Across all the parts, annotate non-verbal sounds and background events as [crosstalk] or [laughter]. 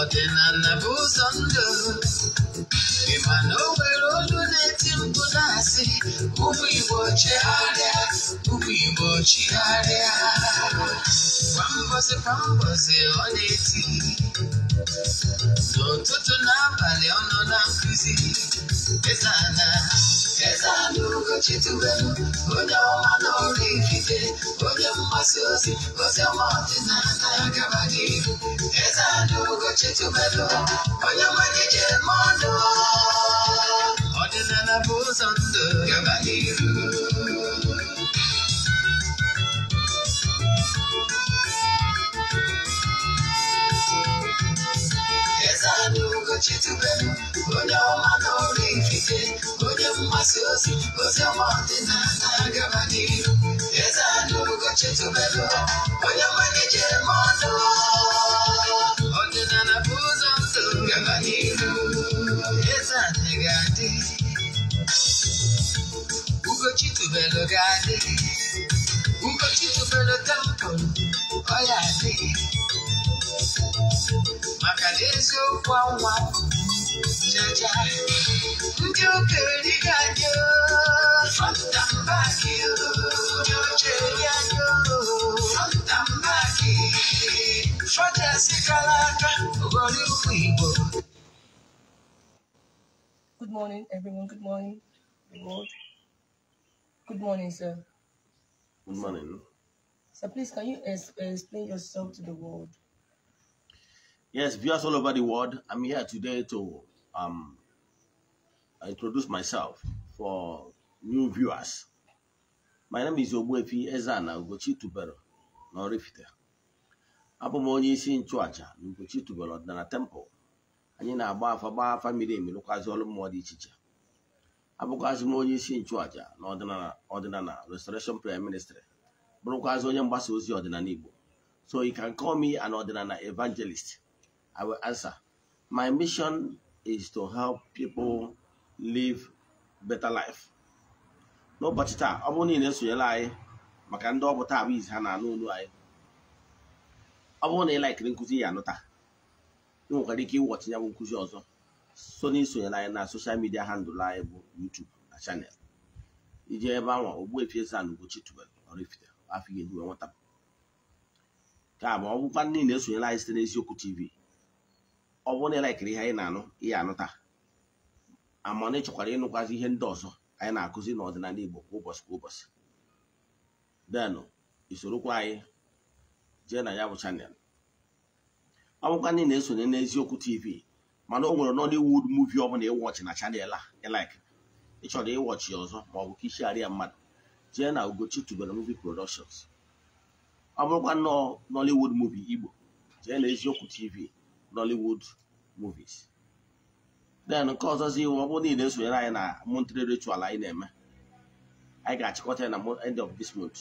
ọ na nnabụ ụzọ ndụ ị ma na o nwere olu na-eti mkpu na-asị ụmụ Igbo chegharịa ụmụ Igbo chigharịa kwa mbọsị kwa mbọsị ọ na-eti n'ụtụtụ n'abalị ọ nọ na nkụzi kwa mbosi o na bali ono na kuzi, izana Feza ndugu chitu wenu Onye ọma n'ori ikite Onye mmasị ozi Ozi oma ọdịna na-agaba n'ihu Feza ndugu chitu wenu Onye nwere ije mmadụ Ọdịnala bụ ụzọ ndụ gaba masiozi uzemoti zasagabadiru ezanulukochetubelo onyamanije mono odinanabuza msogabadiru ezanegadi ugochitubelo gadi ugochitubelo tempo oyadi maka na eziokwu anwa Good morning, everyone. Good morning, Lord. Good morning, sir. Good morning. So please, can you explain yourself to the world? Yes, viewers all over the world, I'm here today to um, introduce myself for new viewers. My name is Ogbuefi Ezana Ugochi Tubelu na Abụ m onye isi nchụàjà na Ugochi ọdịnala temple. Anyị na-agba afa gbaa famili emi rụkwazị ọrụ mmụọ dị iche iche. Abụkwazị m onye isi nchụàjà na ọdịnala Restoration Prayer Ministry. Bụrụkwazị onye mgbasa ozi ọdịnala Igbo. So you can call me an ọdịnala evangelist. I will answer. My mission is to help people live better life n'ụbọchị taa ọ bụrụ na esonyele anyị maka ndị ọ bụ taa bụ izi ha na-anụ olu anyị ọ bụrụ na ị laikiri nkụzi ya anụ taa ị nwekwara ike ịwọchi ya bụ nkụzi ọzọ so na isonyere anyị na soshal midia handụl anyị bụ YouTube na chanel ije ebe anwa Ogbuefi Eze-Ana Ugochi tubelu Oraifite Afọ Ihe Hiwe Nwata ka ma ọ bụkwa na-esonyere anyị site n'Eziokwu TV ọ bụrụ na ịlaikiri ihe anyị na-anụ ihe anụta amana ị ịnụkwazi ihe ndị ọzọ anyị na-akụzi n'ọdịnala Igbo kwa ụbọchị kwa ụbọchị denụ isorokwa anyị jee na ya bụ chanel ọ bụkwa ndị na-esonye n'eziokwu tv mana o nwere Nollywood movie ọ bụla ịwọchị na chanel a ịlaik ịchọrọ ịwọchị ọzọ ma ọ bụ ka mmadụ jee na Ugochi tubelu movie productions ọ bụrụkwa nnọọ Nollywood movie Igbo jee na eziokwu tv Nollywood movies then nke ọzọzi iwu ọ bụrụ niile esonyere anyị na Montreal ritual anyị na-eme anyị ga-achịkọta ya na end of this month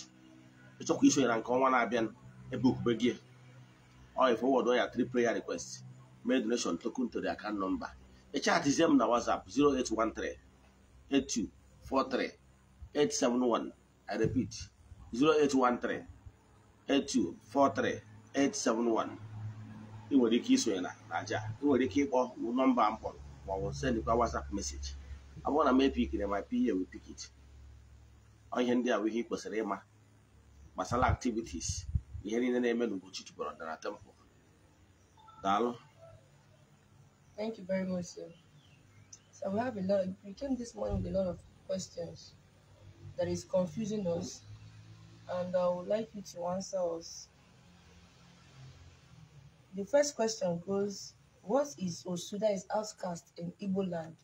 ịchọkwa isonyere nke ọnwa na-abịa ebe okpukpe gị oil forward ya three prayer request mee donation token to the nọmba number ịchatizie m na WhatsApp 0813 8243 871 I repeat 0813 8243 871 ị nwere ike isonye na na aja ị nwere ike ịkpọ nọmba m kpọrọ ma ọ bụ sendịkwa WhatsApp meseji ọ bụrụ na m epikiri ma piye we pikit ihe ndị a bụ ihe ị kwesịrị ịma gbasara activities ihe niile na-eme n'Ugochi chụpụrụ ọdara temple daalụ Thank you very much, sir. So we have a lot. We came this morning with a lot of questions that is confusing us, and I would like you to answer us The first question goes, what is Osuda is outcast in Igbo land?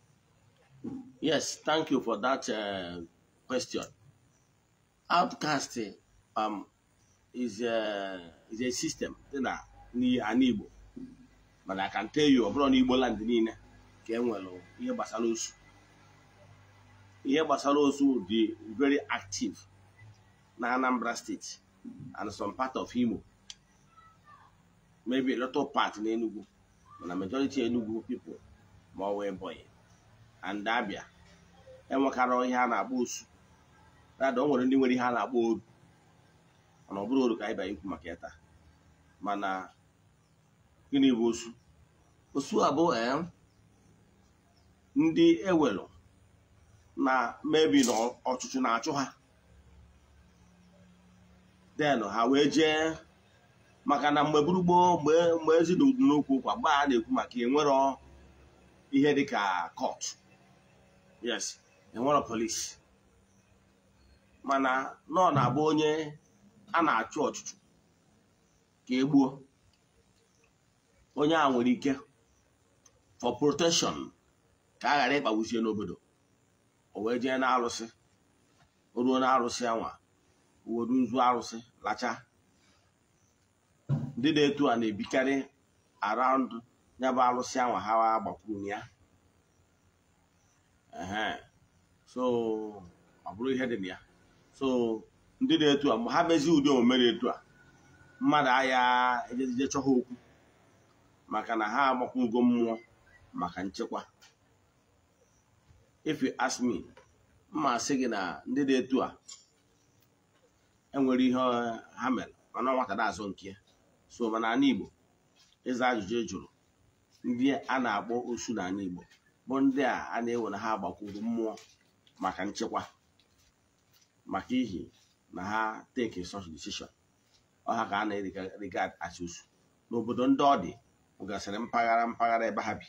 Yes, thank you for that uh, question. Outcast um, is, a, uh, is a system na an Igbo. But I can tell you, ọbụrụ na Igbo land niile ka e nwere ihe gbasara osu. very active na Anambra State and some part of Imo. maybe a lot of mana majority Enugu people ma ọ wee Ebonyi and Abia enwekarị ihe a na-akpọ osu rada o nwere eh, ndị nwere ihe a na-akpọ oru mana ọ bụrụ oru ka anyị ikwu maka ịta mana gịnị bụ osu osu abụọ ndị ewelu na mebi na na-achụ ha den ha wee jee maka na mgbe gburugburu mgbe mgbe ezidụdu n'okwu ụkwa a na-ekwu maka enwere ihe dịka kọt yes enwere polis mana nọ na-abụ onye a na-achụ ọchụchụ ka egbuo onye a nwere ike for protection ka a ghara ịkpagbuchie n'obodo o wee jee na arụsị o ruo na arụsị anwa uwe arụsị lachaa. ndị na-eto a na-ebikarị around ya alụsị ahụ ha gbakwuru ya so ọ bụrụ ihe dị na ya so ndị na a mgbe ha mezighi ụdị omume na-eto a mmadụ agha ejejije chọha okwu maka na ha agbakwugo mmụọ maka nchekwa if you ask mma sị gị na ndị na-eto a enwere ihe ha mere mana nwata na-azụ nke ya soba na ala Igbo ịza ajụjụ jụrụ ndị a na-akpọ osu n'ala Igbo bụ ndị a a na-ewe na ha agbakwuru mmụọ maka nchekwa maka ihi na ha teki such decision ọha ka a na-regard as osu n'obodo ndị ọ dị gasịrị mpaghara mpaghara ebe ha bi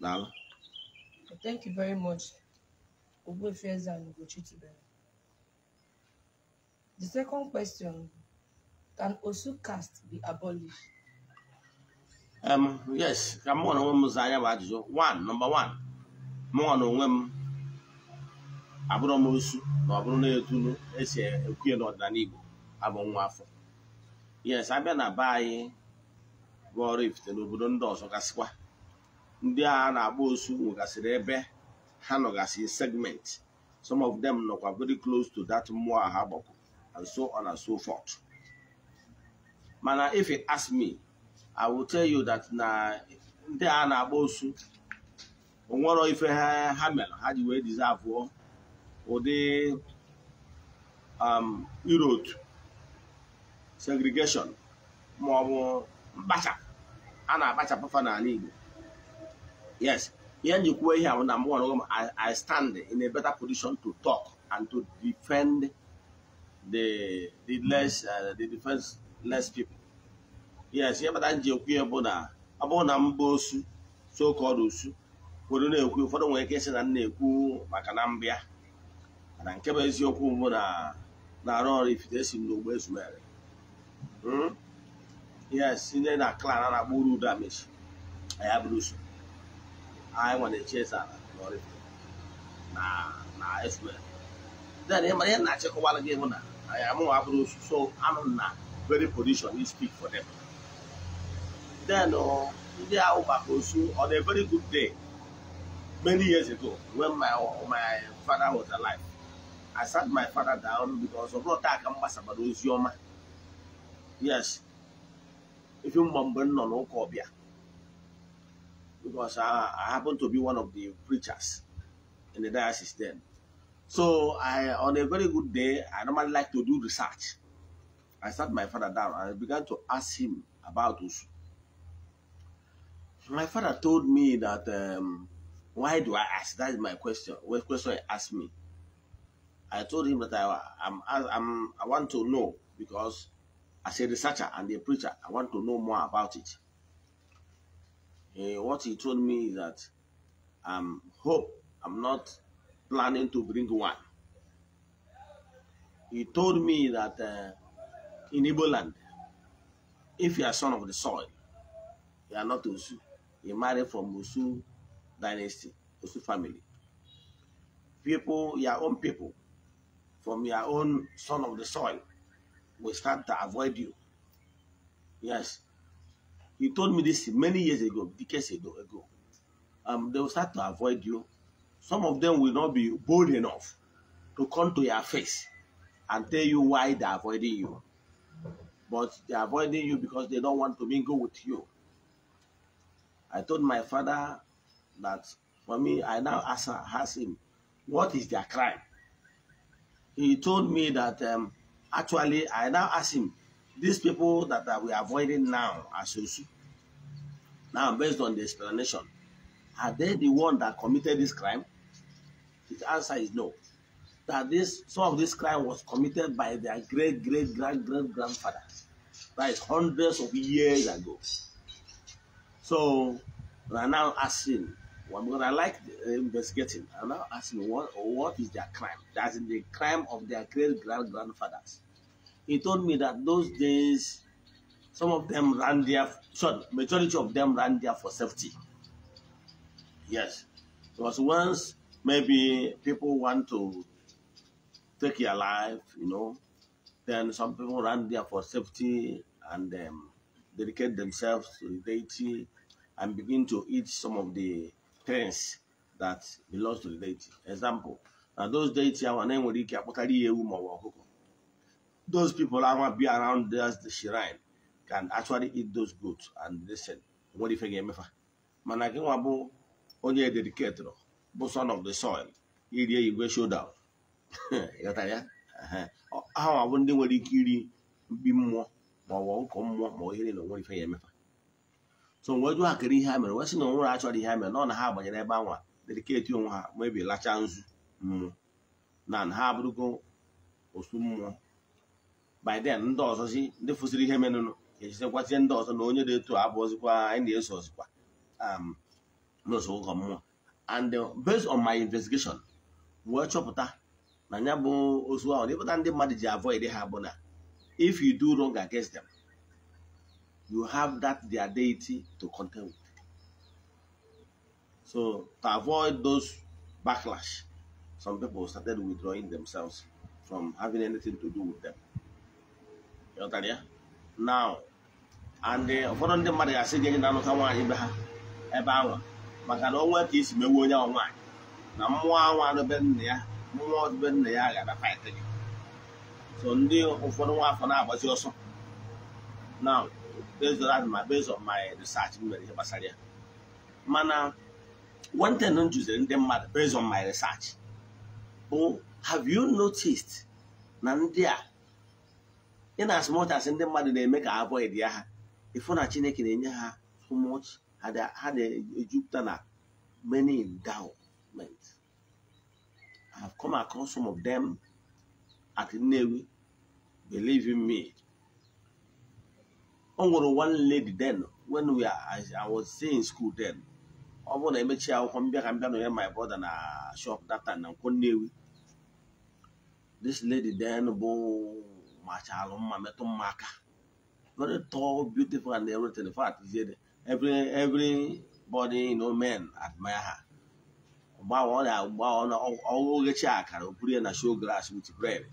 daalụ Can Osu caste be abolished? Um, yes, ka m nwere onwe m zaa ya bụ ajụjụ one number one mụnwa onwe m abụrụ m osu na ọ na etulu esi ekwuye n'ọdịnala Igbo abụ nwa afọ yes abịa na be anyị bụ n'obodo ndị ọzọ gasịkwa ndị agha na-agba osu nwegasịrị ebe ha nọgasị segment some of them nọkwa very close to that mmụọ ha and so on and so forth mana if you ask me i will tell you that na ndị a na-agba osu onwero ife ha mere ha ji wee dizavụọ ụdị um, irootu segregeshọn ma ọ bụ mkpacha a na-akpachapụfa n'ala Igbo yes ihe njikwuo ihe ahụ na mgbe ọrụ I stand in a better position to talk and to defend the the less uh, the defense less people yes ihe kpata nji na ọ na mba osu so-called osu kwuru na-ekwu ụfọdụ nwere ike na nna na-ekwu maka na mbia na nke bụ eziokwu mbụ na na-arụ ọrụ ifite esi hmm? na klan a na-akpọ na na na then na very position he speak for them. Then uh, ndị ahụ maka osu on a very good day many years ago when my uh, my father was alive I sat my father down because of bụrụ taa ka m your ozi yes If you remember, no, nọ Kobia. because I, I happen to be one of the preachers in the diocese then so I on a very good day I normally like to do research I sat my father down and I began to ask him about Usu. My father told me that, um, why do I ask? That is my question. What question he asked me? I told him that I, I'm, I'm, I want to know because as a researcher and a preacher, I want to know more about it. Uh, what he told me is that I um, hope I'm not planning to bring one. He told me that uh, in Igbo land, if you are son of the soil, you are not Osu. You marry from Osu dynasty, Osu family. People, your own people, from your own son of the soil, will start to avoid you. Yes. He told me this many years ago, decades ago. ago. Um, they will start to avoid you. Some of them will not be bold enough to come to your face and tell you why they're avoiding you but they're avoiding you because they don't want to mingle with you. I told my father that for me, I now ask him, what is their crime? He told me that um, actually, I now ask him, these people that, that we are avoiding now are Sosu. Now, based on the explanation, are they the one that committed this crime? His answer is no that this some of this crime was committed by their great great grand great grandfather. That is hundreds of years ago. So we are now asking, well, because I like uh, investigating, I'm now asking what what is their crime? That's the crime of their great grand grandfathers. He told me that those days, some of them ran there. Sorry, majority of them ran there for safety. Yes, because once maybe people want to take your life, you know. Then some people run there for safety and um, dedicate themselves to the deity and begin to eat some of the things that belongs to the deity. Example, now those deity Those people that want to be around us, the shrine can actually eat those goods and listen. What if I get mefa? Mana gị nwa bụ onye dedicated but son of the soil. Iri show down. [laughs] ịghọtara ya ndị nwere ike iri mkpi mmụọ ma ọ bụ ụkọ mmụọ ma ohere na onwere ife ya emefa so mgbe jụ ha kere ihe ha mere wee sị na onwere achọrọ ihe ha mere na ọ na ha gbanyere ebe anwa dediketi onwe ha mebi lacha nzu mmụọ na ha abụrụgo osu mmụọ by ndị ndị si ndị fụsiri ihe menụnụ ga-echezekwazie ndị ọzọ na onye dị etu abụ ozikwa anyị na-eso ozikwa um, n'ụzọ ụkọ mmụọ and based on my investigation wee chọpụta na ya bụ ozu ahụ ịpụta ndị mmadụ ji avoid ha bụ na if you do wrong against them you have that their deity to contend with so to avoid those backlash some people started withdrawing themselves from having anything to do with them ịghọtara ya now and eh, ụfọdụ ndị mmadụ ga-asị gị enye na-anụta nwaanyị be ha ebe anwa maka na onwe ka isi mewe onye ọ nwaanyị na mmụọ anwa anụbe nna ya nwa ọdịbe nna ya gara paịtị gị so ndị ụfọdụ nwa afọ na-agbazi ọsọ na bezọrọ adịma bezọ my research m mere ihe gbasara ya mana wenten m jụziri ndị mmadụ based on my research bụ have you noticed na ndị a in as much as ndị mmadụ na-eme ka avoid ya ha ịfụ na Chineke na-enye ha so much ha na-ejupụta na many endowment I've come across some of them at Navy. Believe in me. Onwere one lady then, when we are, I, I was still in school then. ọ bụrụ na emechi akwụkwọ mbịa ka mbịa nọnyere my brother na shop that time na nkwọ Nnewi this lady then bo machalụ mma metụ mma aka very tall beautiful and everything in fact every everybody you know men admire her oghechi akara opuru ya na show grass with bread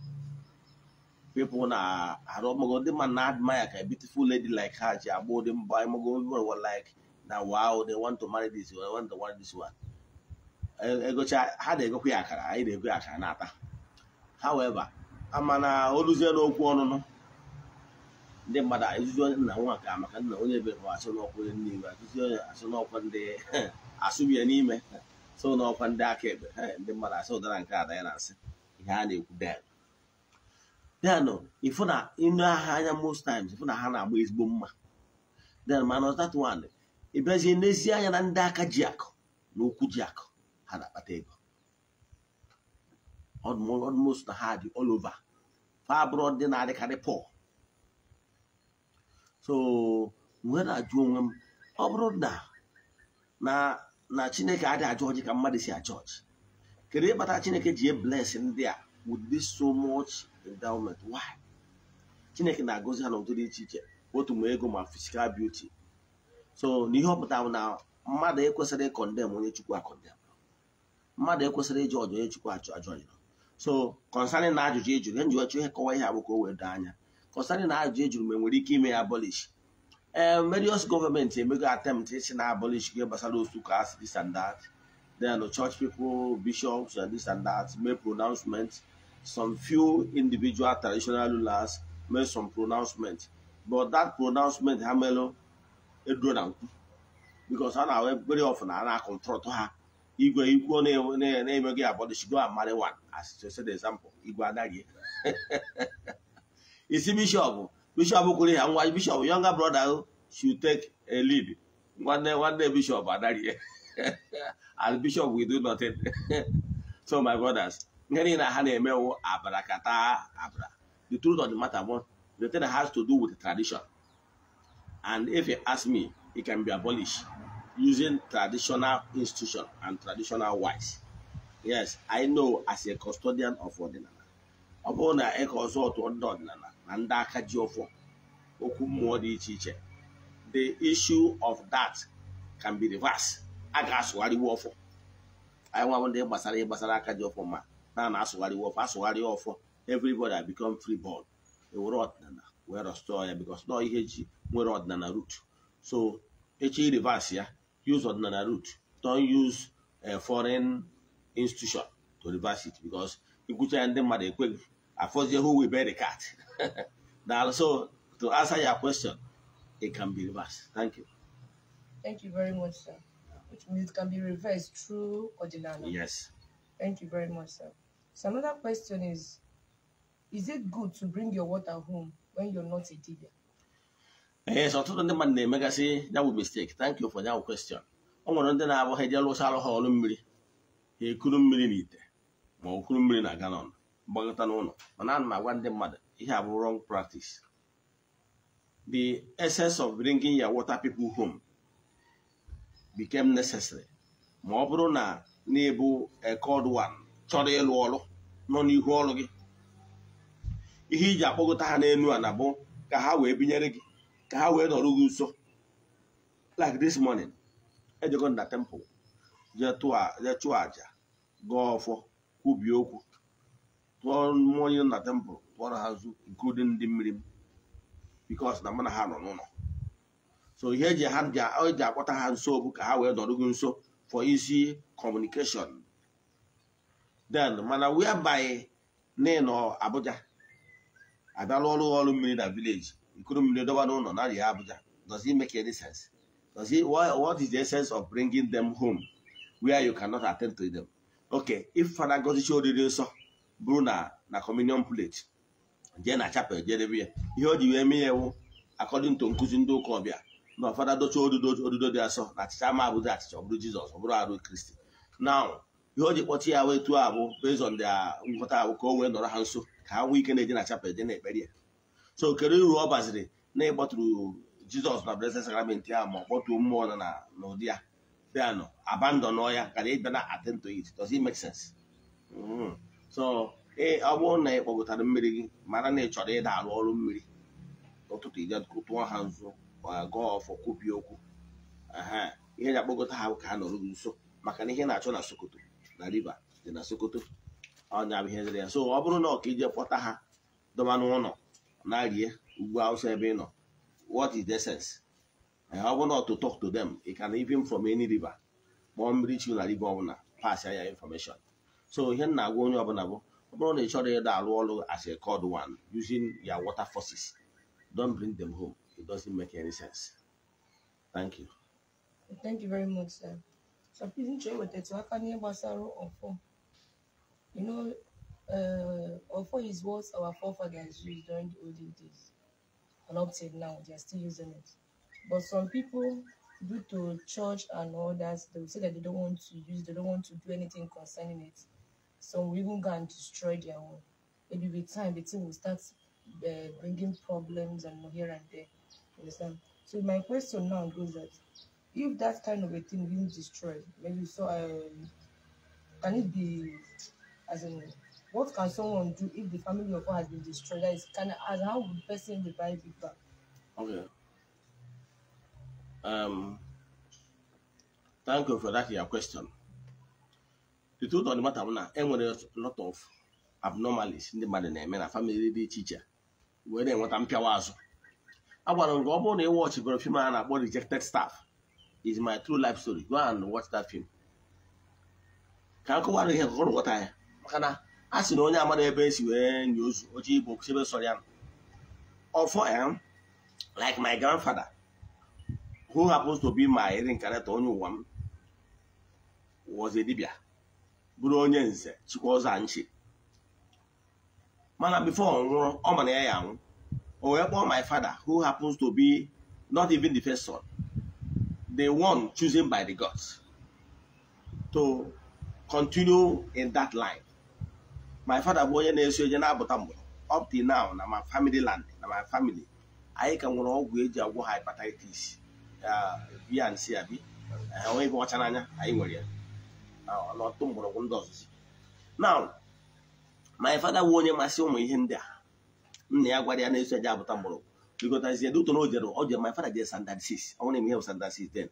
people na arụ ọmọgọ ndị mmadụ na admire ka e beautiful lady like her ji agba ụdị mba ịmọgọ people were like na wow they want to marry this one want to marry this one egocha e ha na-egokwa ya akara anyị na-egwe ya akara na-ata however amana oluzie n'okwu ọnụnụ ndị mmadụ ezuzi onye nna nwa ka maka nna onye bere [laughs] asụ n'ọkwa onye n'iwe asụzi onye asụ n'ọkwa ndị asụbi ya n'ime so n'ọkwa ndị akaebe ndị mmadụ asị ụdara nke ada ya na-asị ihe a na-ekwu ifu na ịnụ aha anya most times ifu na ha na-agba ezigbo mma then mana that one ịbịazie n'ezi anya na ndị aka ji akụ na okwu ji akụ ha na-akpata ego almost na ha dị all fa abụrụ na-adịkarị pọl so na-ajụ onwe m ọ bụrụ na na chineke adịghị ajụ ọjị ka mmadụ si achọ ọjị kedu ịkpata chineke ji ebles ndị a wụdị so much endowment why chineke na-agọzi ha n'ụdị dị iche iche otu ma ego ma physical beauty so n'ihe ọ pụtara na mmadụ ekwesịrị ịkọndem onye chukwu akọndem mmadụ ekwesịrị ịjụ ọjụ onye chukwu achọ ajụ ọjụ so kọnsanin na ajụjụ ejụrụ enjụ ọchụ ihe kọwa ihe abụ ka o wee doo anya kọnsanin na ajụjụ ejụrụ ma enwere ike ime ya abolish Eh, various gọọmenti emego eh, attempt ịchị na abolish ihe gbasara otu kas this and that then church people bishops and eh, this and that make pronouncement some few individual traditional rulers mee some pronouncement but that pronouncement ha melụ eduro na nkwu because ha na very often a na-akọntrọtụ ha igwe ikwu na-emeghị abọdịchigo amari one as said example igwe anaghị isi bishọp Bishop Okuri and one Bishop, younger brother, oh, should take a lead. One day, one day, Bishop, another year. [laughs] As Bishop, we do nothing. [laughs] so, my brothers, oh, the truth of the matter, one, the thing has to do with tradition. And if you ask me, it can be abolished using traditional institution and traditional wise. Yes, I know as a custodian of ordinary. Upon a consort to ordinary. na ndị aka ji ọfọ okwu mmụọ dị iche iche the issue of that can be reversed a ga-asụgharịwa ọfọ anyị nwa ndị gbasara gbasara aka ji ọfọ ma na na-asụgharịwa ọfọ asụgharịa ọfọ everybody become free ball. ewere ọdịnala wee restore ya because nọ ihe ji nwere ọdịnala root so echi reverse ya use ọdịnala route. don't use a eh, foreign institution to reverse it because ikwucha ya ndị mmadụ ekweghị I Afozie who will bear the cat. [laughs] now, so to answer your question, it can be reversed. Thank you. Thank you very much, sir. Which means it can be reversed through ordinance. Yes. Thank you very much, sir. So another question is, is it good to bring your water home when you're not a dealer? Yes, eh, ọtụtụ ndị mmadụ na-emegasị ya bụ mistake. Thank you for that question. Ọ nwere ndị na-abụ ha eje lụsa alụ ha ọrụ mmiri, ha ekuru mmiri n'ite ma ọ kuru mmiri na galọn. gbagọta n'ụlọ mana ana m agwa ndị mmadụ ihe abụ wrong practice the essence of bringing your water people home became necessary ma ọ bụrụ na na-ebu ekod one chọrọ ịlụ ọrụ nọ n'ihu ọrụ gị ihe iji akpọgota ha n'elu a na bụ ka ha wee binyere gị ka ha wee nọrọ gị nso like this morning ejego na temple jee chụọ aja Gaa ọfọ kwubie okwu tụọ mmụọ na nna tempụl tụọrọ ha nzu nke ụdị ndị mmiri m bikos na mana ha nọ n'ụlọ so ihe eji ha eji akpọta ha nso bụ ka ha wee dọrụgo nso for isi communication then mana by name nọ Abuja abịala ọrụ ọrụ mmiri na vileji nkuru mmiri dọba n'ụlọ na ya Abuja does it make any sense does it what is the essence of bringing them home where you cannot attend to them okay if Fada Ngozi Chidiorie nsọ bụrụ na na communion plate jee na chapel jedebe ya ihe o ji wee mee ya ewu according to nkụzi ndị ụka ọbịa na ọfada docha odudo odudo dị asọ na achịcha ama abụzi achịcha ọ jizọs ọbụrụ arụ kristi na ihe o ji kpọchi ya wee tụọ abụ bezọ ndị nghọta abụ ka o wee nọrọ ha nso ka ha nwee ike na-eje na chapel je na-ekpere ya so kedu uru ọ baziri na ịkpọtụrụ jizọs na blessed sacrament ahụ ma ọ kpọtuo mmụọ na na ụdị ya bịanụ abandon ya kara ịbịa na atento it does it make sense mm-hmm. so ọ bụrụ na ị kpọgotara mmiri gị mara na ị chọrọ ịda arụ ọrụ mmiri n'ụtụtụ ije ha nzu ga ọfọ kwubi okwu ihe na-akpọgota ha ka ha nọrọ gị nso maka na ihe na-achọ na sokoto na riva dị na sokoto ọnya ihe dịrị ya so ọ bụrụ na ọka ije kpọta ha dọba n'ụlọ na rie ugwu awụsa ebe ị nọ what is the ọ bụrụ na to talk to ị ka na even from any river kpọọ mmiri chi na riva ọbụla pass ya so now, m na-agwa onye ọbụla bụ ọ bụrụ na agwa up. obula chọrọ buru that i will ida as a cold one using your water forces don't bring them home it doesn't make any sense thank you thank you very much sir So So I can hear n'ihe on ọfọ you know uh, ọfọ is what our forefathers used during the olden days and up till now they are still using it but some people due to church and all that they will say that they don't want to use they don't want to do anything concerning it some will even go and destroy their own. Maybe with time, the team will start uh, bringing problems and here and there. understand? So my question now goes that if that kind of a thing being destroyed, maybe so, um, can it be as in what can someone do if the family of one has been destroyed? That is, can as how would person revive it back? Okay. Um. Thank you for that. Your question. the ụtọ of the na enwere lot of abnormalities ndị mmadụ na-eme na famịlị dị iche iche eh, wee na-enweta mpịawa azụ agwara m gị ọ bụrụ na ị wọchibere fim a na-akpọ rejected staff is my true life story go and watch that film ka m kọwara ihe nkọrọ nghọta ya maka na a sị na onye amara ebe esi wee nye ozu oche ibu chebe sọrọ ya ọfọ ya like my grandfather who happens to be my reincarnate onye ụwa m was a dibia bụrụ onye nze chịkwa ọzọ mana bifo ọ nwụrụ ọ mana ya ya anwụ o wee kpọọ my father who happens to be not even the first son the one chosen by the gods to continue in that line my father bụ onye na-eso onye na-abụta mgbe up till now na my family land na my family anyị ka nwere ọgwụ eji agwọ hepatitis uh, bnc abi enweghị ọcha n'anya anyị nwere ya n'ọtụtụ mgbọrọgwụ ndị ọzụzụ now my father wụ onye masị ụmụ ihe ndị a nna ya gwara ya na-eso eje abụta mgbọrọgwụ bikotazie duton o jere oje my father jere standard 6 ọnwụna eme ihe bụ 6 then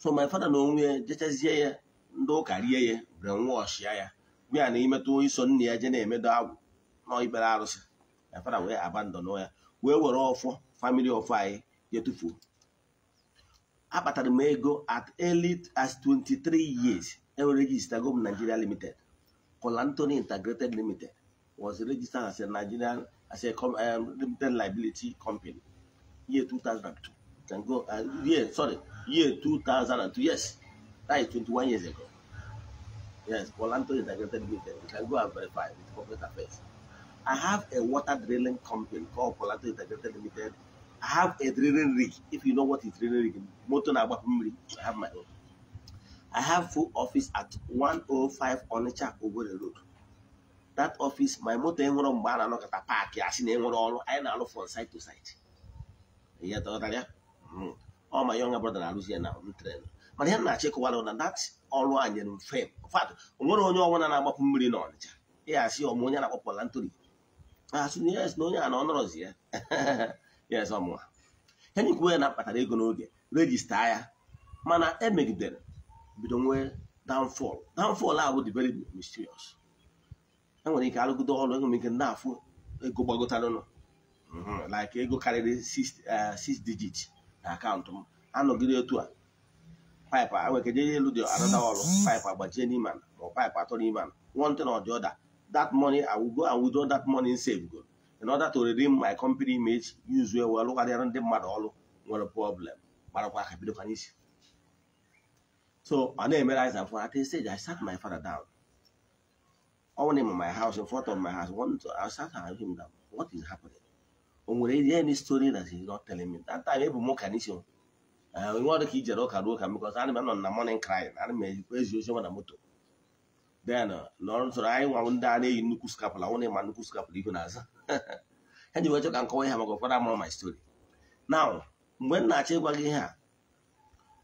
so my father na onwe jechazie ya ndị ụka rie ya brainwash ya ya gwa na imetụ iso nna ya je na-emedo agwụ na ikpere arụsị my father wee abandon ya wee were ọfọ famili of anyị je tụfuo m ego at early as 23 years El registered Gum Nigeria Limited. Colantoni Integrated Limited was registered as a Nigerian as a um, limited liability company year 2002. Can go uh, yeah sorry year 2002 yes that is 21 years ago. Yes, Colanto Integrated Limited. You can go and verify with corporate affairs. I have a water drilling company called Colanto Integrated Limited. I have a drilling rig. If you know what is drilling rig, motor rig. I have my own. I have full office at 105 Onitsha Owerri Road. That office, my moto enwere mgbe a na-anọkọta paakị asị na enwere ọrụ anyị na-alụ from side to side. Ihe tọtara ya? Ọ ma younger brother na-arụzi ya na tren. Mana ihe na-achọ ịkọwara na that ọrụ a nyere m Fat, onwere onye ọbụla na-agbapụ mmiri na Ọnịcha. ya asị ọmụ onye na-akpọ Palanturi. Asị na yes [laughs] na onye a na ọ nọrọzi ya. Yes, ọmụwa. Henry kwuo ya na akpatara ego n'oge, rejista ya. Mana emegidere bido nwee downfall downfall would be very mysterious I'm going enwere ike arụgide ọrụ enwere ike ndị afụ ego gbagotaranụ mhm, like ego karịrị 6 eh, six digits account. I'm digit na akaụntụ m anọgide otu a paịpụ enwekeje elu dị anada ọrụ paịpụ agbajie n'ime ma ọ paịpụ atọ n'ime ma one thing or the other that money I will go and withdraw that money in safe. go in order to redeem my company image use where we well lụkarịara mad all ọrụ nwere problem But gbarakwa aka bido isi so ọ na-emere anyị at a stage I sat my father down ọnwụna m my house in front of my house one to I him what is happening o nwere any story that he not telling me that time ebu m ụka n'isi onwe ọrụ ka i ụka ruo because m na morning crying ana m ejikwa ezi ozi na moto then n'ọrụ tụrụ nwa ndị a na-eyi nnukwu skapụla nwụna ịma nnukwu skapụla ihu na ha ji ka nkọwa ihe maka ụfọdụ amụrụ my story now na-achọ ịgwa gị ihe a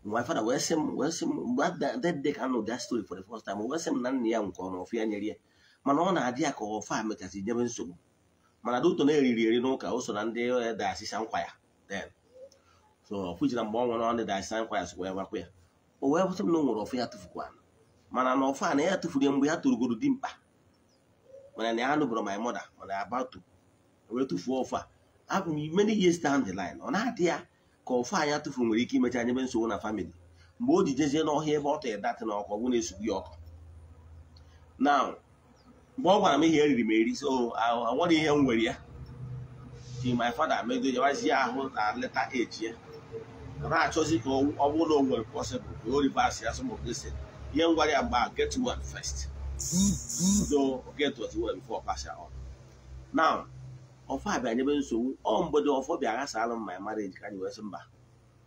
my father wee sị m mgbe that day ka anụ that story for the first time wee sị m na nna ya nke ọma ọfụ ya nyere ya mana ọ na-adị ya ka ọfa mechasị nyebe nsogbu mana duto na-eriri eri n'ụka o so na ndị eh, da nkwa ya then so ọfụ mgbe ọ na ọ ndị da nkwa oh, ya sokwa ya gwakwa ya o wee sị m na nwere ọfụ ya tụfukwa mana na ọfụ ya tụfuru ya mgbe ya torugoro mkpa mana na ya anụbụrụ my mother mana ya tụfuo a bụ m the ọ na-adị ya ka ofe anya tụfuru nwere ike imecha anyebe nsogbu na famili mgbe o ji jezie n'ọhịa ebe ọ tọrọ datị na ọkụ ọgwụ na-esugbu ya ọkụ na mgbe ọ gwara m ihe eriri m eri so oh, nwere ihe nwere ya ji my fada medojawazie ahụ na leta eji ya na-achọzi ka ọ bụrụ na o nwere pọsịbụl ka o ribas ya sọ mgbe ihe m ya get one first do mm, mm. get what you want before pass ya now ọfọ abịa nyebe nsogbu ọ mgbede ọfọ bịa ghasalụ m my marriage ka anyị wee sị mba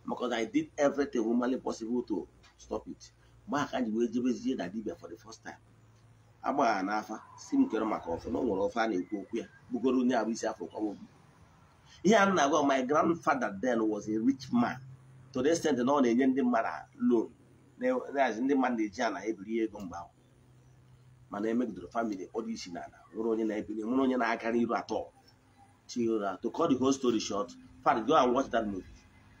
na I did everything humanly possible to stop it mgbe aka anyị wee jebezie na dibia for the first time agbagha n'afa si m kere maka ọfọ na ọ nwere ọfọ a na-ekwu okwu ya bugoro onye abụ isi afọ obi ihe a na-agwa my grandfather then was a rich man to the extent na ọ na-enye ndị mmadụ loan na-azi ndị mmadụ na-eji ana ebiri ego mgbe ahụ mana emegidoro famili ọ dị na n'ala nwere onye na-ebili nwere onye na-aga n'iru atọ Chira. To cut the whole story short, fact, go and watch that movie.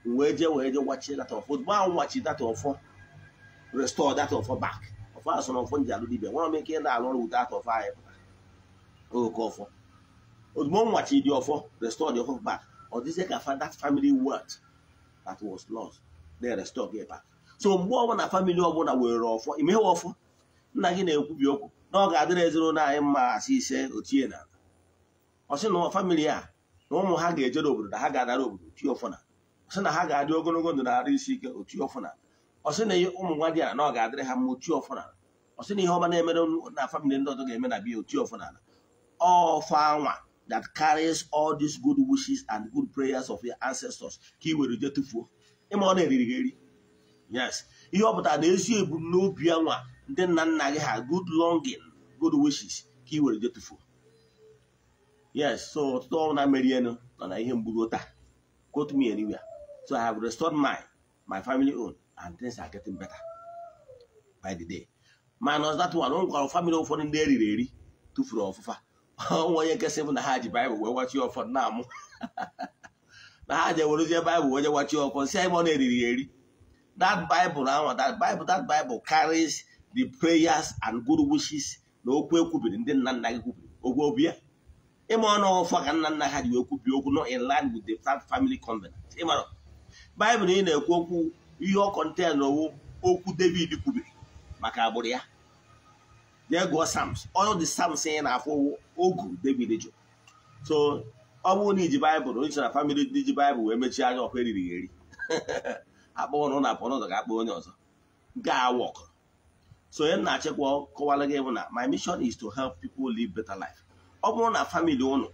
Weje weje watch that of go and watch that of restore that of back. Of us on phone jalu dibe. Wanna make it na alone with that of Oh, go for. Ozmo oh, watch the of restore the back. Or this that family worth that was lost. They restore get ọbụla were ọfọ imeghe ọfọ nna gị na-ekwubi okwu na ọ ga anyị ise ochie ọ sị na famili a na ụmụ ha ga-ejere obodo ha ga-adara obodo otu ọfụna ọ sị na ha ga-adị ogologo ndụ na-arụ isi ike otu ọfụna ọ sị na ụmụ nwa dị na ọ ga-adịrị ha mo otu ọfụna ọ sị na ihe ọma na-emere na famili ndị ọzọ ga-eme na bi otu ọfụna All anwa that carries all these good wishes and good prayers of your ancestors ka ị were je tụfuo ịma ọ na-eriri gị eri yes ihe ọ pụtara na ezi ebumnobi anwa ndị nna nna ha good longing good wishes ka ị were je tụfuo yes so ọtụtụ ọrụ na-emeri elu nọ na ihe mgburu taa quote me anywhere so i have restored my my family own and things are getting better by the day minus that one ọ gwara family ụfọdụ ndị eriri eri tụfuru ọfụfa ọnwa onye nkesị bụ na ha ji baịbụl wee gwachie ọfọdụ na-amụ na ha ji ewerezie baịbụl wee gwachie ọfọdụ si ebe ọ na-eriri eri that bible ahụ that bible that bible carries the prayers and good wishes na okwu ekwubiri ndị nna nna gị kwubiri okwu obi ya ịma ọnụ ọfọ ka nna nna ha ji wee kwubi okwu nọ in line with the third family covenant ịmara baịbụl ị na-ekwu okwu ihe ọ kọnten owu okwu david kwubiri maka agbụrụ ya jee gụọ sams ọnụ dị sams ị na-afụ ogu david so ọ bụrụ na iji baịbụl onye na famili ndị ji baịbụl wee mechie anya ọkụ eriri eri [laughs] akpọ na apụ n'ụzọ ga-akpọ onye ọzọ ga wọkụ so onye na-achịkwa kọwara gị bụ na my mission is to help people live better life ọ bụrụ na famili ụnụ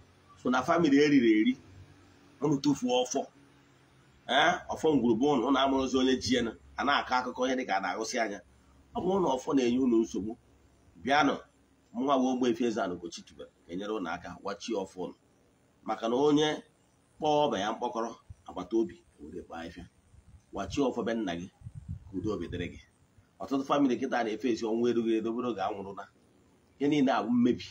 so na famili eriri eri ụnụ tụfuo ọfọ ee eh, ọfọ ngwurugwu ụnụ ụnụ amụrụzi onye ji enu a na-akọ akụkọ ihe dịka a na-agụsị anya ọ bụrụ na ọfọ na-enye ụnụ nsogbu bịanụ nwa we efe Eze-Ana ga-enyere ụnụ aka gwachie ọfọ ụnụ maka na onye kpọọ ọba ya mkpọkọrọ agbata obi were kpaa ifia gwachie ọfọ be nna gị ka udo obi dịrị gị ọtụtụ famili kịta na-efe esi ọnwụ erughị ga anwụrụ anwụrụla ihe niile abụ mmebi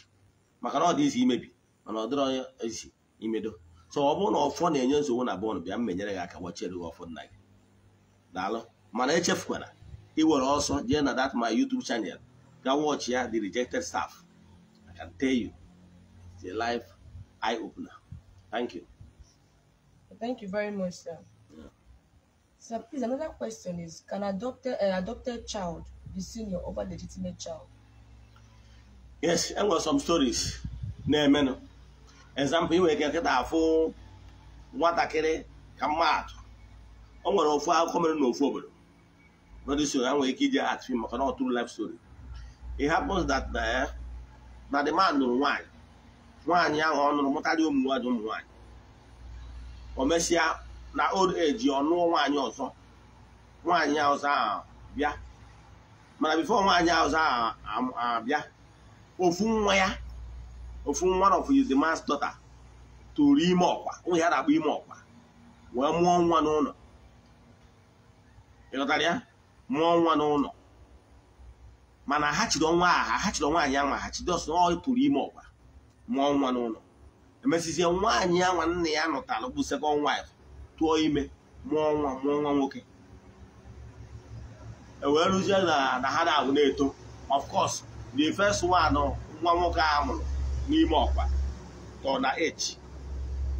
maka na ọ dị izi imebi mana ọ dịrọ ezi imedo so ọ bụrụ na ọfọ na-enye nsogbu na bọọlụ bịa m menyere gị aka gbachiere gị ọfọ nna gị daalụ mana echefukwara iwere ọsọ jee na that my YouTube channel ga watch ya the rejected staff I can tell you it's a life eye opener thank you thank you very much sir yeah. sir please another question is can adopted, uh, adopted child be senior over legitimate child yes e nwere some stories na-emenụ example inwere ike nkịta afụ nwatakịrị ka mmadụ o nwere ofu akụkọ mere n'ofu obodo so ha nwere ike iji atụ maka na tụrụ life story it happens that na eh, the man nụrụ nwaanyị nwaanyị ahụ ọ nụrụ mụtarị ụmụ nwaanyị ụmụ nwaanyị o mesịa na old age ọ nụọ nwaanyị ọzọ nwaanyị ọzọ ahụ bịa mana before nwaanyị ọzọ ahụ bịa. ofu nwa ya ofu nwa of his man's daughter tụrụ ime ọkwa ụmụ ya na-akpọ ime ọkwa wee mụọ nwa n'ụlọ ịghọtara ya mụọ nwa n'ụlọ mana ha chiri ọnwa aha ha chiri nwaanyị anwa ha chide ọsọ ọ tụrụ ime ọkwa mụọ nwa n'ụlọ emesizie nwaanyị nwa nna ya nụtara bụ second wife tụọ ime mụọ nwa mụọ nwa nwoke e wee rụzie na ha na-abụ na-eto of the first one nwa nwoke a n'ime ọkwa tọ na h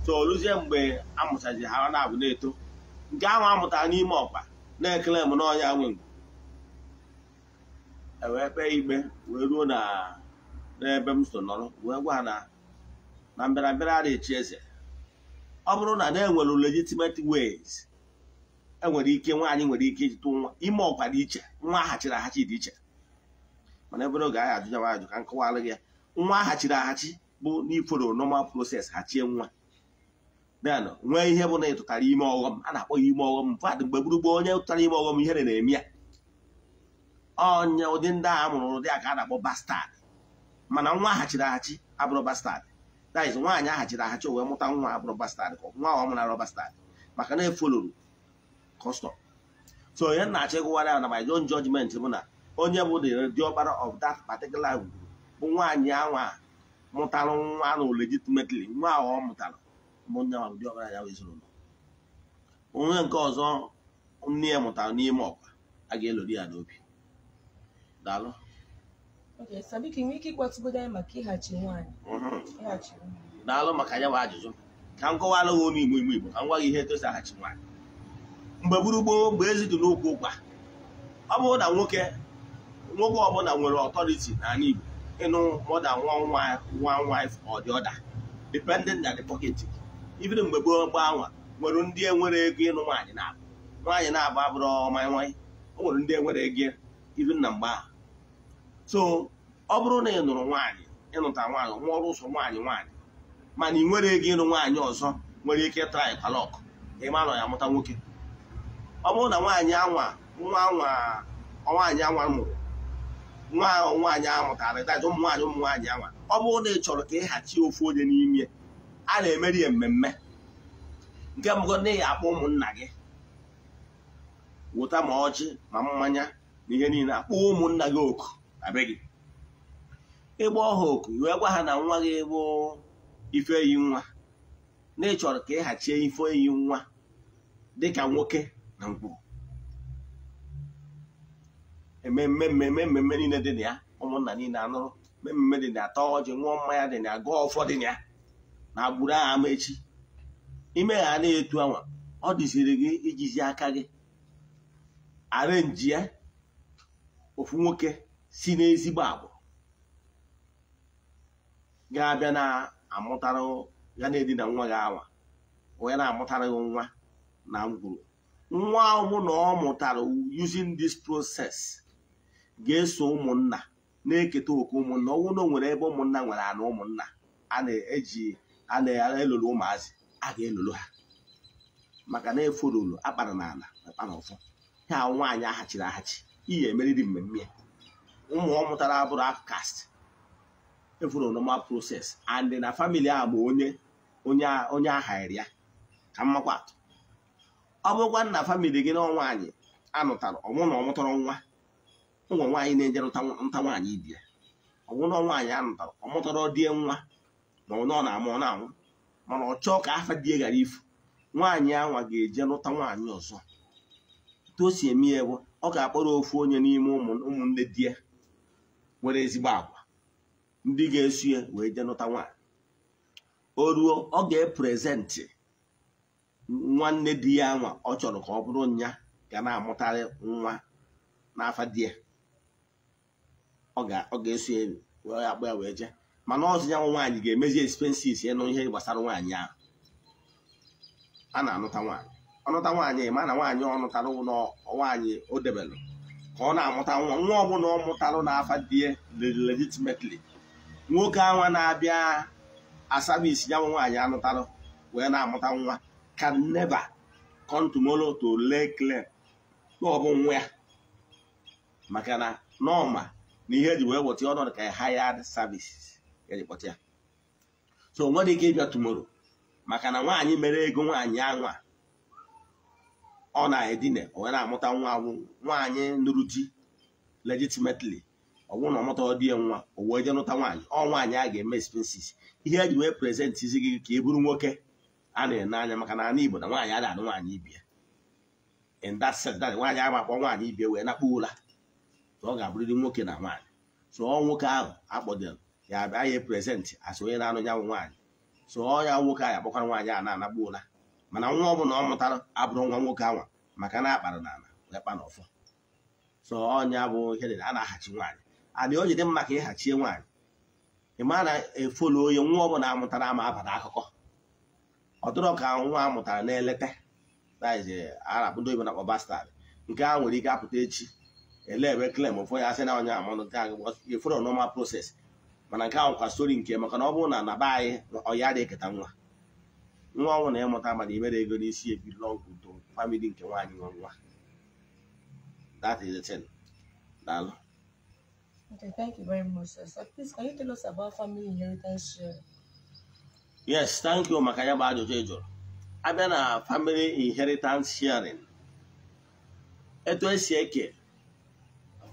so oluzie mgbe amụchaji ha na-abụ na-eto nke ahụ amụtara n'ime ọkpa na-ekele m n'ọnya nwe ewee kpee igbe wee ruo n'ebe m so nọrọ wee gwa na na mbịarambịa ara echi eze ọ bụrụ na na-enwere legitimate ways enwere ike nwaanyị nwere ike iji nwa ime ọkwa dị iche nwa ahachiri ahachi dị iche mana ebe oge anyị ajụnyanwa ajụ ka m kọwara gị ya nwa aghachiri aghachi bụ n'iforo normal proses hachie nwa den nwee ihe bụ na ịtụtara ime ọghọm a na-akpọ ya ime ọghọm mfadụ mgbe gburugburu onye tụtara ime ọghọm ihere na-eme ya onye ụdị ndị a mụrụ ụdị a ka a na-akpọ bastad mana nwa aghachiri aghachi abụrụ bastad daiz nwaanyị aghachiri aghachi wee mụta nwa abụrụ bastad ka nwa ọ mụrụ arụ bastad maka na efoloro kọstọm so onye na ya na my own bụ na onye bụ diọkpara uh, of that particular group bụ nwaanyị anwa mụtara nwa na legitimately nwa ahụ ọ mụtara onye diọkpara ya ezinụlọ onye nke ọzọ nne ya mụtara n'ime ọkwa a ga-elori ya n'obi daalụ mm-hmm. daalụ maka ya bụ ajụjụ ka m kọwara gị onye igbo igbo igbo ka m gwa gị ihe etosaghachi nwaanyị mgbe gburugburu mgbe bụ ezi dị n'okwu ụkwa ọ bụrụ na nwoke nwoke ọbụla nwere ọtọriti n'ala Igbo ịnụ mọda nwa nwa wife ọ ọda dependent na the pocket even mgbe gboo gbanwa nwere ndị enwere ego ịnụ nwaanyị na-abụ nwaanyị na-abụ abụrụ ọmanye nwanyị o nwere ndị enwere ego even na mgbe ahụ so ọ bụrụ na ị nụrụ nwaanyị ịnụta nwaanyị nwa ọrụ ụsọ nwaanyị nwaanyị mana ị nwere ego ịnụ nwaanyị ọzọ nwere ike traị palọk ịma nọ ya mụta nwoke ọ bụrụ na nwaanyị anwa nwa anwa mụrụ nwa nwaanyị ahụ mụtara ịtaja ụmụ nwaanyị ụmụ nwaanyị anwa ọ bụrụ na ị chọrọ ka ịghachi ofu onye n'ime a na-emeri ya mmemme nke mbụ na ị akpọ ụmụnna gị wụta ma ọjị ma mmanya na ihe niile akpọ ụmụnna gị oku na gị ịgba ọha oku wee gwa ha na nwa gị bụ ife eyi nwa na ị chọrọ ka ịghachie ife eyi nwa dịka nwoke na mkpụrụ ememme mmemme mmemme niile dị na ya ụmụnna niile anụrụ mmemme dị na ya tọọ ọjị ṅụọ mmanya dị na ya gụọ ụfọdụ na ya na agbụrụ agha ama echi ime ha na etu anwa ọ dịziri gị ijizi aka gị arenji ya ofu nwoke si n'ezigbo agbụ ga-abịa na-amụtara ya na-edina nwa gị awa onye na-amụtara gị nwa na ngwuru nwa ahụ na ọ mụtara using this process ga-eso ụmụnna na-eketa oke ụmụnna ọnwụ na nwere ebe ụmụnna nwere ana ụmụnna a na-eji a na-elolo ụmụazị a ga-elolo ha maka na efololo akpara na ala akpara ọfọ ha nwaanyị aghachiri aghachi iyi emeriri mmemme ụmụ ọ mụtara abụrụ akast efuru normal proses and na famili a bụ onye onye aghari ya ka mmakwatụ ọ bụrụkwa na famili gị na nwaanyị anụtara ọmụ na ọ nwa ụmụ nwaanyị na-ejerụta nta nwaanyị ibie ọnwụnọ nwaanyị a nụtara ọ mụtara die nwa na ọ na-amụ ọ na-anwụ mana ọ chọọ ka afa die ghara ifu nwaanyị anwa ga-eje nụta nwaanyị ọzọ etu o si eme ya bụ ọ ga-akpọrọ ofu onye n'ime ụmụnne di ya nwere ezigbo agwa ndị ga-esu ya wee jee nụta nwaanyị o ruo ọ ga-eprezentị nwanne di ya nwa ọ chọrọ ka ọ bụrụ nya ga na-amụtarị nwa n'afa di ya ọ ga-eso elu wee akpọ ya wee jee mana ọzọ ya nwaanyị ga-emezi expenses ịnụ ihe gbasara nwaanyị ahụ a na-anụta nwaanyị ọnụta nwaanyị ma na nwaanyị ọnụtalụ nwaanyị o debelụ ka ọ na-amụta nwa nwa ọbụla ọ na n'afa dị legitimately nwoke anwa na-abịa asabisi ya nwaanyị anụtarụ wee na-amụta nwa can never come to ọ bụ nwa ya maka na n'ọma. na ihe e ji wee wọta ọnọdụ ka e hired services eji ya so o nwere ike ịbịa tumoro maka na nwaanyị mere ego nwaanyị anwa ọ na-edina onwe na-amụta nwa anwụ nwaanyị nụrụ di legitimately ọ bụrụ na ọ mụta ya nwa o wee je nụta nwaanyị ọ nwaanyị a ga-eme expenses ihe eji wee prezentị izi gị ka ị e bụrụ nwoke a na-ene anya maka na ana Igbo na nwaanyị a na-anụ nwaanyị ibia in nwaanyị a akpọ nwaanyị ibia wee nakpuo ụla ọ ga-abụrịrị nwoke na nwaanyị so ọ nwoke ahụ akpọdoro ya abịa ya prezentị as onye na-anụ nyanwụ nwaanyị so ọ ya nwoke ahụ akpọkwara nwaanyị a na-anagbu mana nwa ọ bụla ọ mụtara abụrụ nwa nwoke ahụ maka na akpara na ala lekpa na ọfọ so ọnya bụ ihe dị a na-ahachi nwaanyị adị o jide mma ka ịhachie nwaanyị ị ma na-efolu onye nwa ọ bụla amụtara ama abata akụkọ ọtụrụ ka nwa amụtara na-eleta a na-akpọdo ibe eh, na-akpọ bastad nke a nwere ike apụta echi elebe klem ụfọ ya asị na onye amanụ nke anyị efere normal proses mana nke ahụ kwa stori nke maka na ọ bụrụ na na be anyị ọya dị eketa nwa nwa ọnwụ na ịmụta mana imere ego n'isi ebi ọgwụ udo famili nke nwaanyị nwa nwa that is the thing daalụ Okay, thank you very much, sir. So please, can you tell us about family inheritance share? Yes, thank you maka ya bụ ajụjụ ị jụrụ. Abịa na family inheritance sharing, etu esi eke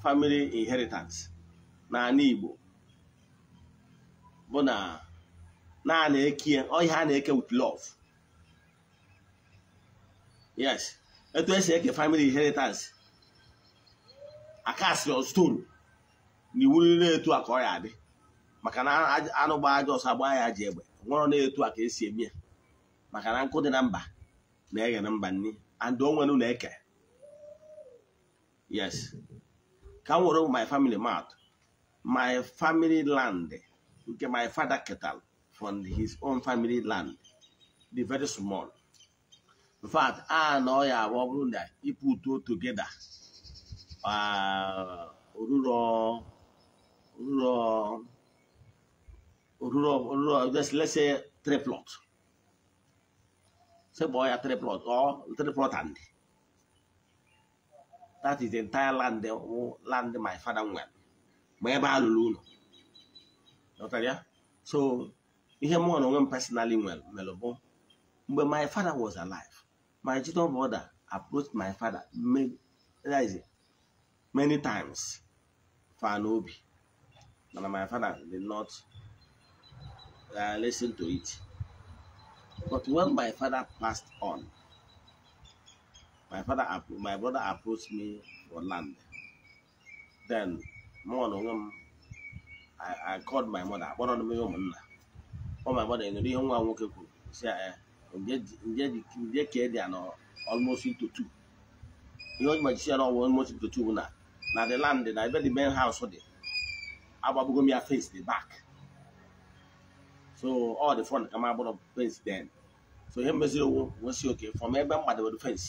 family inheritance n'ala Igbo bụ na na-eke ọhịa a na-eke with love yes etu esi eke family inheritance akasiri stone na iwu na etu a ka ọ ya adị maka na anụ gba aja ọsọ agba ya ji egbe nwụrụ na-etu a ka esi eme ya maka na nkụ dị na mba na-eghe na mba nni and onwe na eke yes ka my family mat my family land nke my father ketal from his own family land the very small in fact I know ọ ya ọ bụrụ na two together oruro oruro oruro oruro just let's say three plots. say boy three plots or three plots and that is the entire land the land my father nwere ma ebe a lụrụ ụlọ ya so ihe mụọ na personally well bụ mgbe my father was alive my children brother approached my father many times for an obi mana my father did not uh, listen to it but when my father passed on my father my brother approached me for land then mmụọ na onwe m I called my mother akpọrọ m ya ụmụnna ọ my mother nụrụ ihe nwa nwoke kwuru si ya nje ka dị ya na almost ito two ihe oji majisi ya na ọwụ almost ito two bụ na na the land na ebe the main house dị agbagbugo m ya face the back so all the front kama m agbụrụ fence then so ihe meziri owu nwesi oke from ebe m gbadebere fence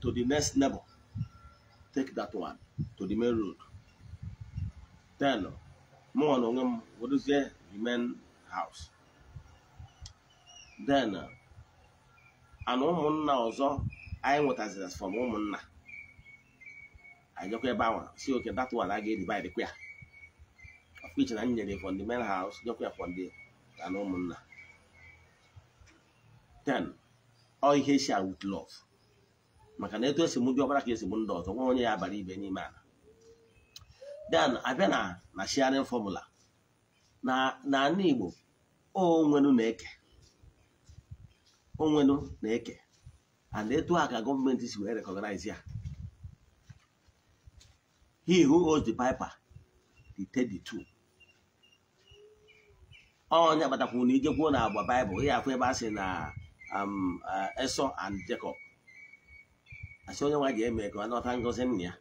to the next neighbor. Take that one to the main road. Then, more on them, what is there? The main house. Then, and ụmụnna ọzọ anyị nwetaziri from ụmụnna anyị jekwa ebe ahụ si oke that one I ga-edivide kwa ya of which na m nyere from the main house jekwa ya from the na ụmụnna then all ihe shi with love maka na eto esi m ndị ọbara ka esi m ndị ọzọ nwa onye ya abara ibe n'ime ala then abịa na na sharing formula na n'ala Igbo onwenu na-eke onwenu na-eke and etu a ka gọọmenti si wee recognize ya he who holds the piper he take the onye kpatakwu na ijekwu na agba baịbụl ya afụ ebe a sị na um, uh, esọ and jacob asị onye nwa ga-eme ka ọ nọta ngọzi nna ya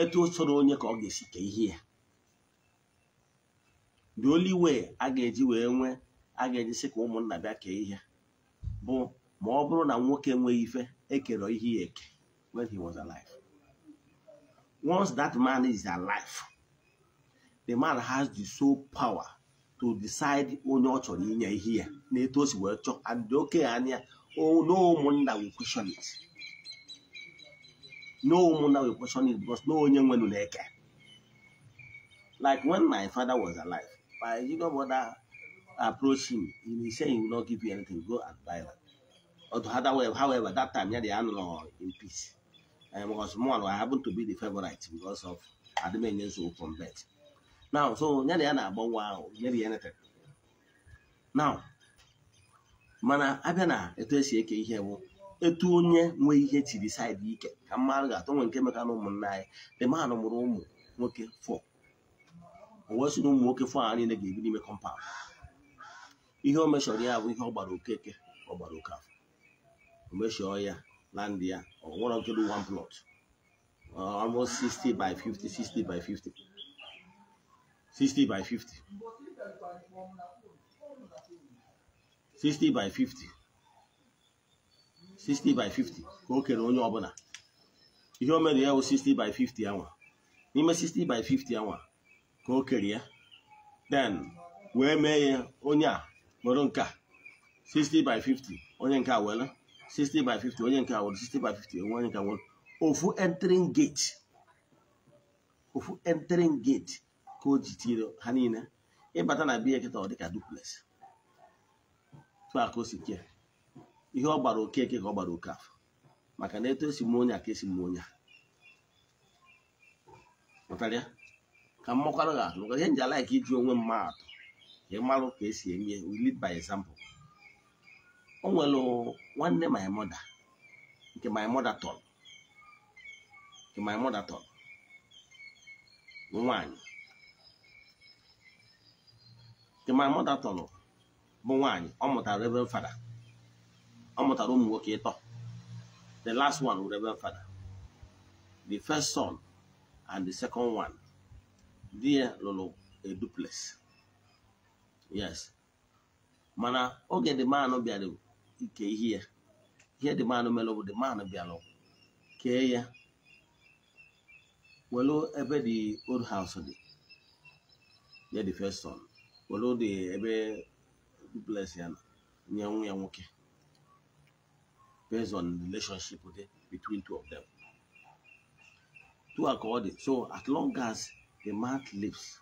etu o soro onye ka ọ ga-esi kee ihe ya the only way a ga-eji wee nwee a ga-eji sị ka ụmụnna bịa kee ihe bụ ma ọ bụrụ na nwoke nwee ife ekere ihe ya eke when he was alive once that man is alive the man has the sole power to decide onye ọ chọrọ inye ihe ya na etu si wee chọọ and okenye anya oh, na ụmụnna will question it No one that will question it because no one will like Like when my father was alive, my younger brother approached him. He said he will not give you anything. Go and buy that. Or however, however, that time, yeah, they are no in peace. And because more, I happen to be the favorite because of Ademenye's from bed. Now, so, yeah, they are not wow, maybe anything. Now, mana abịa na It is esi etu onye nwee ihe chiri saịdị ike ka mmadụ ga-atọ nwe nke meka na ụmụnna anyị dị maanụ mụrụ ụmụ nwoke fọ o wee sị na ụmụ nwoke fọ ha niile ga-ebi n'ime kọmpaụnd ihe o meshọrọ ya bụ ihe ọ gbara okeke ọ gbara oke afọ o meshọọ ya na ndị ya ọ nwere nke dị one plot almost 60 by 50 60 by 50 60 by 50 60 by 50 60 by 50 ka o kere onye ọbụla ihe o mere ya wụ 60 by 50 anwa n'ime 60 by 50 anwa ka o kere ya then wee mee ya onye a nwere nke 60 by 50 onye nke a were 60 by 50 onye nke a were 60 by 50 onye nke a were ofu entering gate ofu entering gate ka o ji tiere ha niile ịbata na biya kịta ọ dịka duplex tụ aka o si kee ihe ọ gbara okeke ka ọ gbara oke afọ maka na eto esi m onye ka esi m onye pụtara ka mmakwara ya atụ ihe nji alaik iji onwe mma atụ ka ịmalụ ka esi eme we by example o nwere nwanne my mother nke my mother nke my mother tọrọ nwanyị nke my mother bụ nwanyị ọ mụtara ebe fada ọ mụtara ụmụ nwoke ịtọ the last one wụ Reverend Father the first son and the second one di ya lụrụ a duplex yes mana oge the man no bịara ike ihe ya Here the man mere bụ the man no bịara kee ya welu ebe the old house dị ya the first son welu the ebe duplex ya nye nwa ya nwoke based on relationship okay, between two of them. Two according. So as long as the man lives,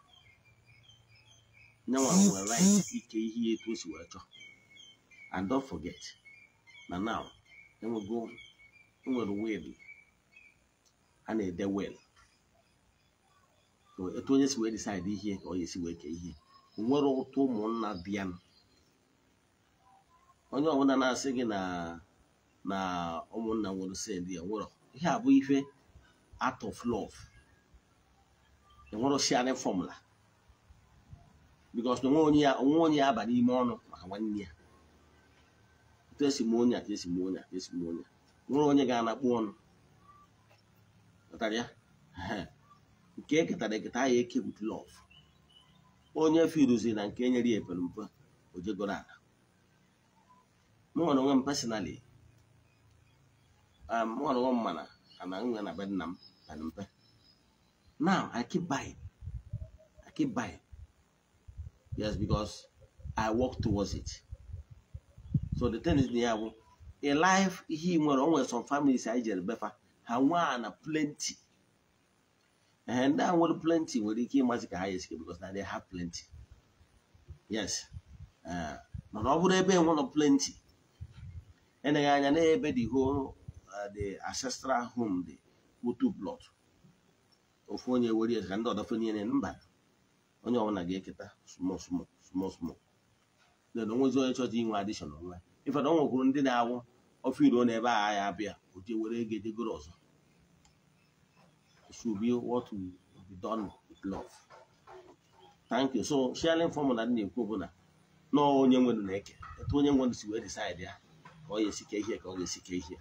now I will write EKE e to And don't forget. Now now, then we go then we'll win. And they will. So it only we decide here or you see where here. Nwere ụtụ ụmụnna bịa onye ọbụla na-asị gị na na ụmụnna nwere send ya nwere ihe a bụ ife art of love enwere sharing formula because na onwe onye ya aba n'ime ọnụ maka nwanne ya etu esi m onye esi m onye esi m onye nwere onye ga-anakpu ọnụ ya nke eketara eketa ahụ eke with love onye firuzi na nke nyere ya epere mpe ojegoro ala m nwere onwe m personally Um, nwere nwa mana I'm gonna nna m pere mpe now i keep buying i keep buying yes because i work towards it so the thing is na in life he more always some families anyị jere befa ha nwee a plenty And that a plenty when he came, ka ha ya esike because now they have plenty yes mana ọ bụrụ one of plenty I, anya n'ebe dị hoo the ancestral home dị otu plot ofu onye were ya ka ndị ọdọfe niile mba onye ọbụla ga-eketa small small small na onwezi onye chọta inwe adishọn nwa ife na ọ nwekwuru ndị na-awụ ofe iro na ebe a ya abịa oje were ego edegoro ọzọ should be what so sharing na dị na-ekwu bụ na nọọ onye nwere na-eke etu onye nwere si wee decide ya ka ọ ga-esike ihe ka ọ ga-esike ihe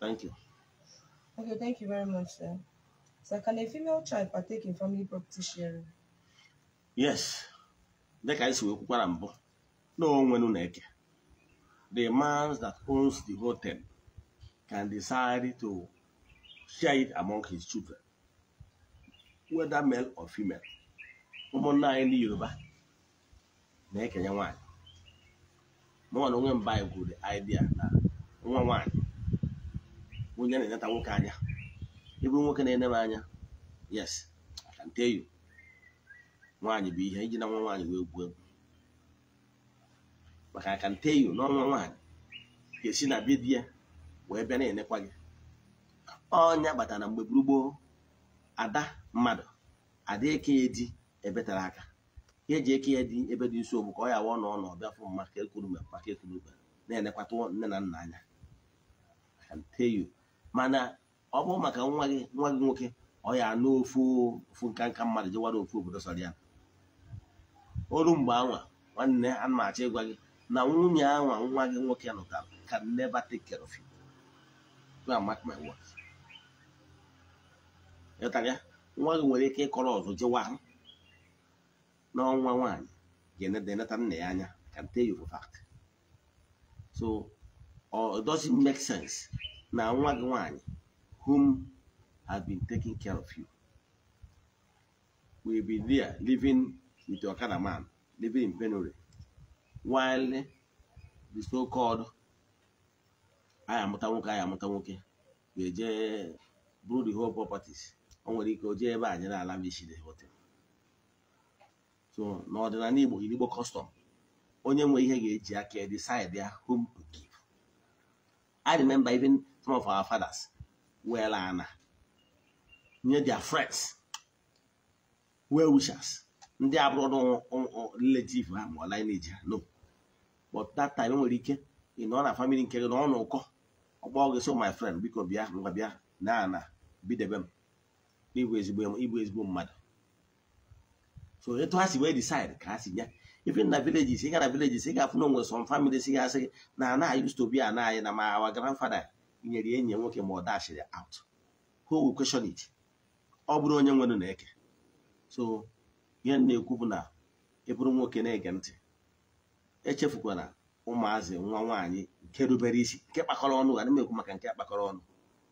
Thank you. Okay, thank you very much, sir. So can a female child partake in family property sharing? Yes. Dịka anyị si wee kwukwara mbụ na onwenu na-eke the man that owns the hotel can decide to share it among his children whether male or female ụmụnna anyị ndị Yoruba na-ekenye nwaanyị mụnwa na onwe mba anyị gwuru idea na nwa nwanyị. onye na-eneta nwoke anya ịbụ nwoke na-ene m anya yes nteyu nwaanyị bụ ihe iji na nwa nwaanyị wee gwuo egwu maka akanteyu n'ọnwa nwaanyị ga-esi na be ya wee bịa na-enekwa gị ọnya kpatara mgbe gburugburu ada mmadụ ada eke ya di ebe tara aka ka eji eke ya dị ebe dị nsogbu ka ọ ya wụọ na ọ nọ ọbịa fụ mma ka ekwuru mgbe maka ekwuru mgbe na-enekwata nne na nna anya akanteyu mana ọ bụ maka nwa gị nwa gị nwoke ọ ya anụ ofu ofu nka nka mmadụ jewara ofu obodo sọrọ ya mgbe anwa nwanne a na-achọ ịgwa gị na nwunye anwa nwa gị nwoke nụtara can never take care of you mark nwa gị nwere ike ịkọrọ ọzọ jewa n'ọnwa nwaanyị ga-eneta nna ya anya can tell yoruba for fact so it doesn't make sense na nwa gị nwanyị whom has been taking care of you will be there living with your kind of man living in Benue while the so-called anyị amụta nwoke anyị amụta nwoke ga-eje bụrụ the whole properties o nwere ike o jee ebe anyị na-ala mechiri hotel so n'ọdịnala Igbo Igbo custom onye nwe ihe ga-eji aka decide ya whom to give I remember even some of our fathers well ana nye their friends well wishers ndị abụrụ relative ha ma ọ lineage ha no but that time nwere ike ị nọ na family nke gị na ọ na ụkọ ọgbọ gị so oh, my friend biko bịa ngwa bịa na ana bidebe m ịbụ ezigbo ịbụ ezigbo mmadụ so etu ha si wee decide ka ha si nye even na villages ị ga na villages ị ga-afụ na onwe some families ga-asị na ana used bi be ana anyị na ma our grandfather nyere enyi ya nwoke ma ọ dashiri out who will question it ọ bụrụ onye nwere na-eke so ihe na-ekwu bụ na ịbụrụ e nwoke na-ege ntị echefukwala ụmụazị nwa nwaanyị nke rubere isi nke kpakọrọ ọnụ ga na-ekwu maka nke kpakọrọ ọnụ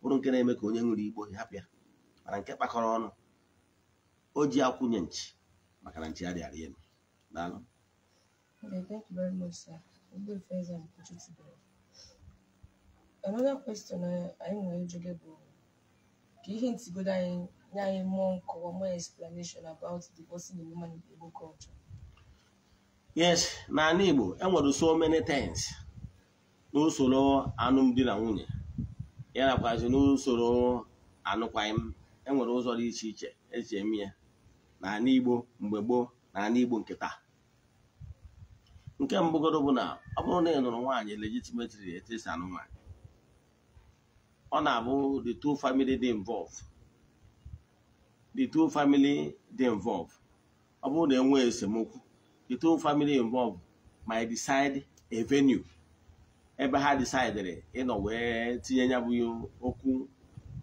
bụrụ nke na-eme ka onye nwere igbo hapụ ya mana nke kpakọrọ ọnụ o ji akwụnye nchi maka na nchi ya dịara elu daalụ Another question eh, anyị nwere ịjụ gị bụ ka ihe ntigodo anyị nye anyị mmụọ nkọwa more explanation about divorcing a woman in Igbo culture. Yes, n'ala Igbo enwere so many things n'usoro alụmdi na nwunye ya nakwazi n'usoro anụkwaghịm enwere ụzọ dị iche iche eji eme ya n'ala Igbo mgbe gboo na Igbo nke taa nke mbụgodo bụ na ọ bụrụ na ị nụrụ nwaanyị legitimately etesa anụ nwaanyị ọ na-abụ the two family dị involved ọ bụrụ na enwe esemokwu the two family involved ị decide a venue ebe ha decidere ịnọ wee tinye ya bụ okwu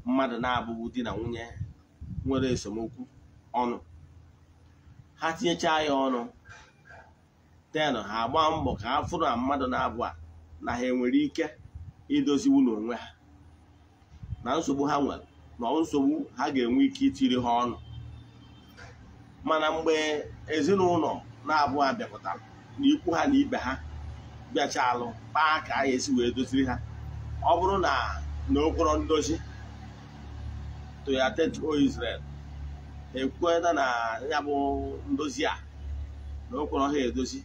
mmadụ na abụbu di na nwunye nwere esemokwu ọnụ ha tinyechaa ya ọnụ ten ha agba mbọ ka ha fụrụ na mmadụ na-abụ a na ha enwere ike idoziwu n'onwe ha na nsogbu ha nwere na nsogbu ha ga-enwe ike itiri ha ọnụ mana mgbe ezinụlọ na-abụọ abịakọtara na ikwu ha na ibe ha bịacha alụ kpaa ka a esi wee doziri ha ọ bụrụ na na okporo ndozi toyatet o Israel na ya bụ ndozi a na okporo ha edozi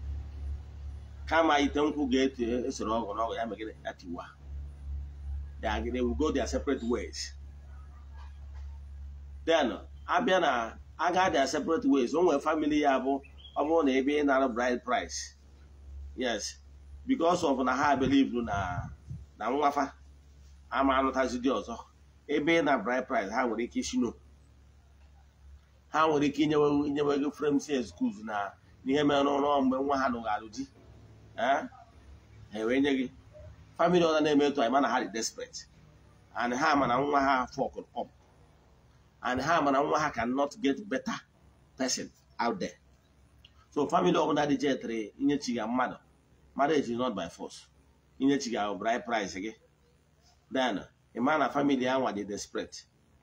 kama ite nkwụ ga-eto esoro ọgụ n'ọgụ ya megide ya tiwa they, are, they will go their separate ways then abịa na aga their separate ways o nwere family ya bụ ọ bụrụ na ebe ị nara bride price yes because of na ha believe na na nwafa ama anụtazi dị ọzọ ebe ị na bride price ha nwere ike ishino ha nwere ike inyewe inyewe gị frame si excuse na ihe mere n'ụlọ mgbe nwa ha nụgharụ di ha enwee nye gị famili ọzọ na-eme etu anyị mana ha dị desperate and ha mana nwa ha afọ up and ha mana nwa ha cannot get better person out there so famili ọbụla dị jetere inyechiga mmadụ marriage is not by force inyechiga bride price gị then ịma na famili ya nwa dị desperate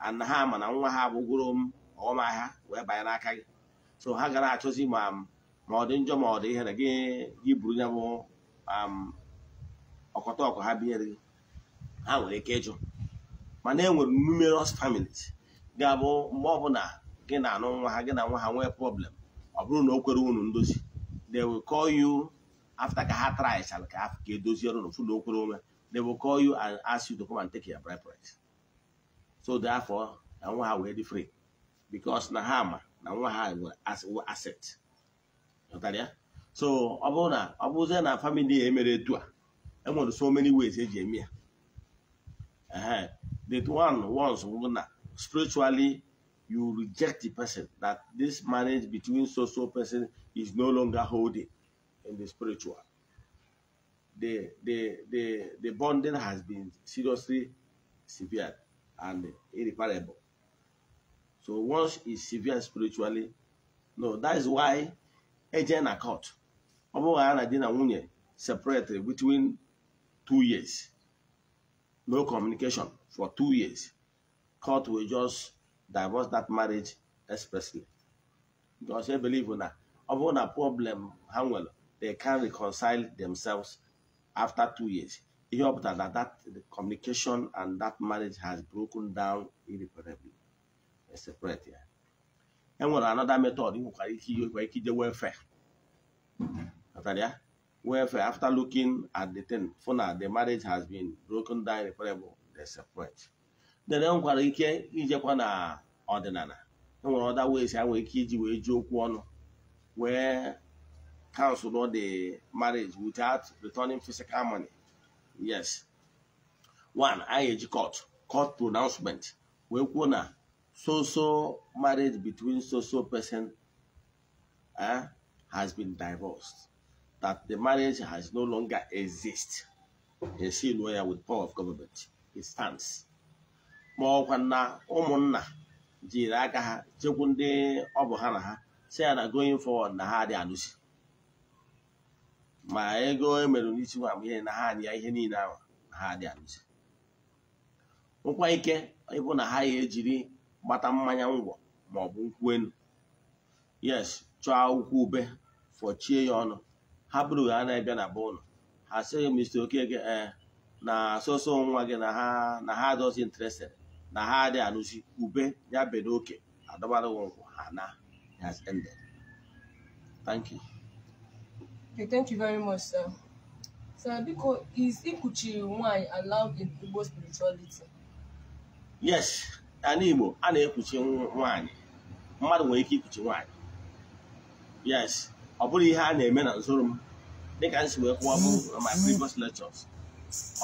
and ha mana nwa ha abụgoro m ọmahịa wee banye n'aka gị so ha gara achọzi ma ma ọ dị njọ ma ọ dị ihe ihere gị gị buru ya bụ um, ọkọta ọkụ ha biere gị ha nwere ike ịjụ mana e nwere numerous families ga-abụ mgbe ọbụla gị na anụ nwa ha gị na nwa ha nwee problem ọ bụrụ na o kwere unu ndozi they will call you after ka ha traichara ka ka edozi ọrụ na ofu na ome they will call you and ask you to come and take your preference so therefore na nwa ha wee dị free because na ha ma na nwa ha were asset so ọ bụrụ na ọ bụzie na family a emere etu a In so many ways eji that one once spiritually you reject the person that this marriage between so so person is no longer holding in the spiritual the the the the bonding has been seriously severe and irreparable so once it's severe spiritually no that is why agent accord ọ bụghị na di na nwunye separate between two years. No communication for two years. Court will just divorce that marriage expressly. Because they believe in that. Upon a problem, Hangwell, they can reconcile themselves after two years. He hoped that, that, that communication and that marriage has broken down irreparably. It's separate here. And what another method, you can use welfare. After that, Wherefore, after looking at the thing, for na the marriage has been broken down irreparable, they separate. Then e nwekwara ike ijekwa na ọdịnala e nwere ọda ways ha nwere ike iji wee ji okwu ọnụ wee cancel the marriage without returning physical money. Yes. One, anyị court court pronouncement wee kwuo na so so marriage between so so person has been divorced. that the marriage has no longer exist esi lụọ ya with power of government it stands ma ọkwa na ụmụnna jiri aka ha chekwu ndị ọ bụ ha na ha si ya na going forward na ha dị anụsi ma ego emere n'isi nwa na ha dị ya ihe niile ahụ na ha dị anụsi nkwa ike ịbụ na ha ya ejiri gbata mmanya ngwọ ma ọ yes chọọ akwụkwọ ube fọchie ya ọnụ ha bụrụ ha na-abịa na bụ ụlọ ha sịghị mr oke ee na asụsụ nwa gị na ha na ha adọzi interested na ha adị anụzi ube ya bere oke adọbara nkwụ ha na has ended thank you okay, thank you very much sir sir biko is ịkụchiri nwanyị allowed in Igbo spirituality yes ya n'Igbo, a na ekwuchi nwanyị mmadụ nwere ike ikpuchi nwanyị yes ọ bụrụ ihe a na-eme na nzụrụ m dịka nsi wee kwụwa bụ na my mm. previous lectures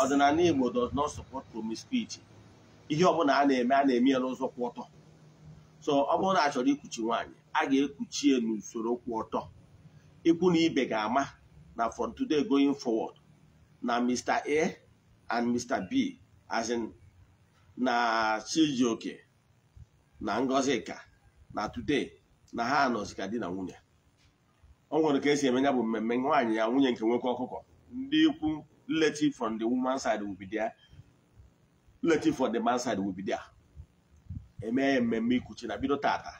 ọdịnala Igbo does not support promiscuity ihe ọbụla a na-eme a na-eme ya n'ụzọ kwụ ọtọ so ọ bụrụ na a chọrọ ikwuchi nwaanyị a ga-ekwuchi ya n'usoro kwụ ọtọ ikwu na ibe ga-ama na from today going forward na Mr. A and Mr. B as in na Chijioke na Ngozika na today na ha nọzika di na nwunye o nwere ka esi eme ya bụ mmemme nwaanyị ya nwunye nke nwoke ọkụkọ ndị ikwu relative from the woman side will be there the man side will be there ya mmemme ikwuchi na bido tata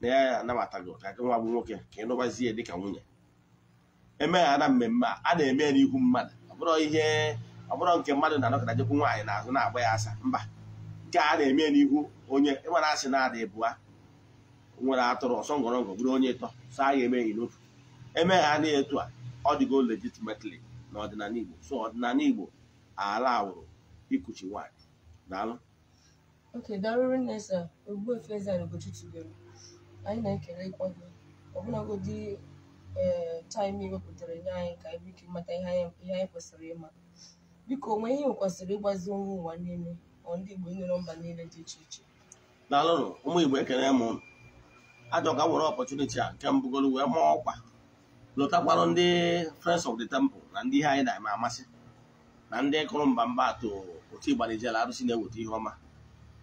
na ya anabata gị ụta nwa bụ nwoke ka ị nụbazie dịka nwunye eme ya na mmemme a na-eme ya n'ihu mmadụ ọbụrụ ihe ọbụrụ nke mmadụ na-anọkọta jekwu nwaanyị n'azụ na-agba ya asa mba nke a na-eme ya n'ihu onye ịmara asị na-ada ịbụa nwere atụrụ ọsọ ngọrọngọ bụrụ onye ịtọ sọ a ga-eme ya n'otu eme ha etu a ọ dịgo legitimately na ọdịnala Igbo so ọdịnala Igbo ala awụrụ ikuchi nwanyị daalụ Okay, darụrụ nne anyị na-ekele ịkpọ gị ọbụlagodi ee eh, taịm wepụtara nye anyị ka anyị ike mata ihe anyị kwesịrị ịma biko onwe ihe kwesịrị ịgbazi nwa ụwa niile ọ ndị Igbo nyere mba niile dị iche iche daalụnụ ụmụ Igbo ekele m ajọ ka were ọpọchuniti a nke mbụgolo wee maa ọkwa lọtakwarụ ndị friends of the temple na ndị ihe anyị na-eme amasị na ndị kụrụ mba mba atụ otu ịgbanijela arụsị na-eweta ihe ọma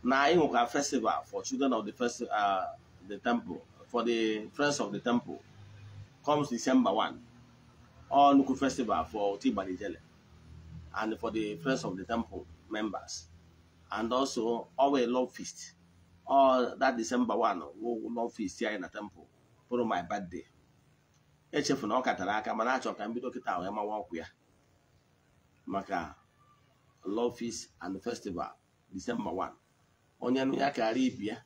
na anyị nwekwa festival for children of the first uh, the temple for the friends of the temple comes December 1 all nnukwu festival for otu ịgbanijele and for the friends of the temple members and also always love feast all that December 1 love feast anyị na temple pụrụ my birthday echefu na ọ katara aka mana achọ ka m bido kịta wee mawa ọkwụ ya maka lofis and festival disemba 1 onye nụ ya karịa ibi ya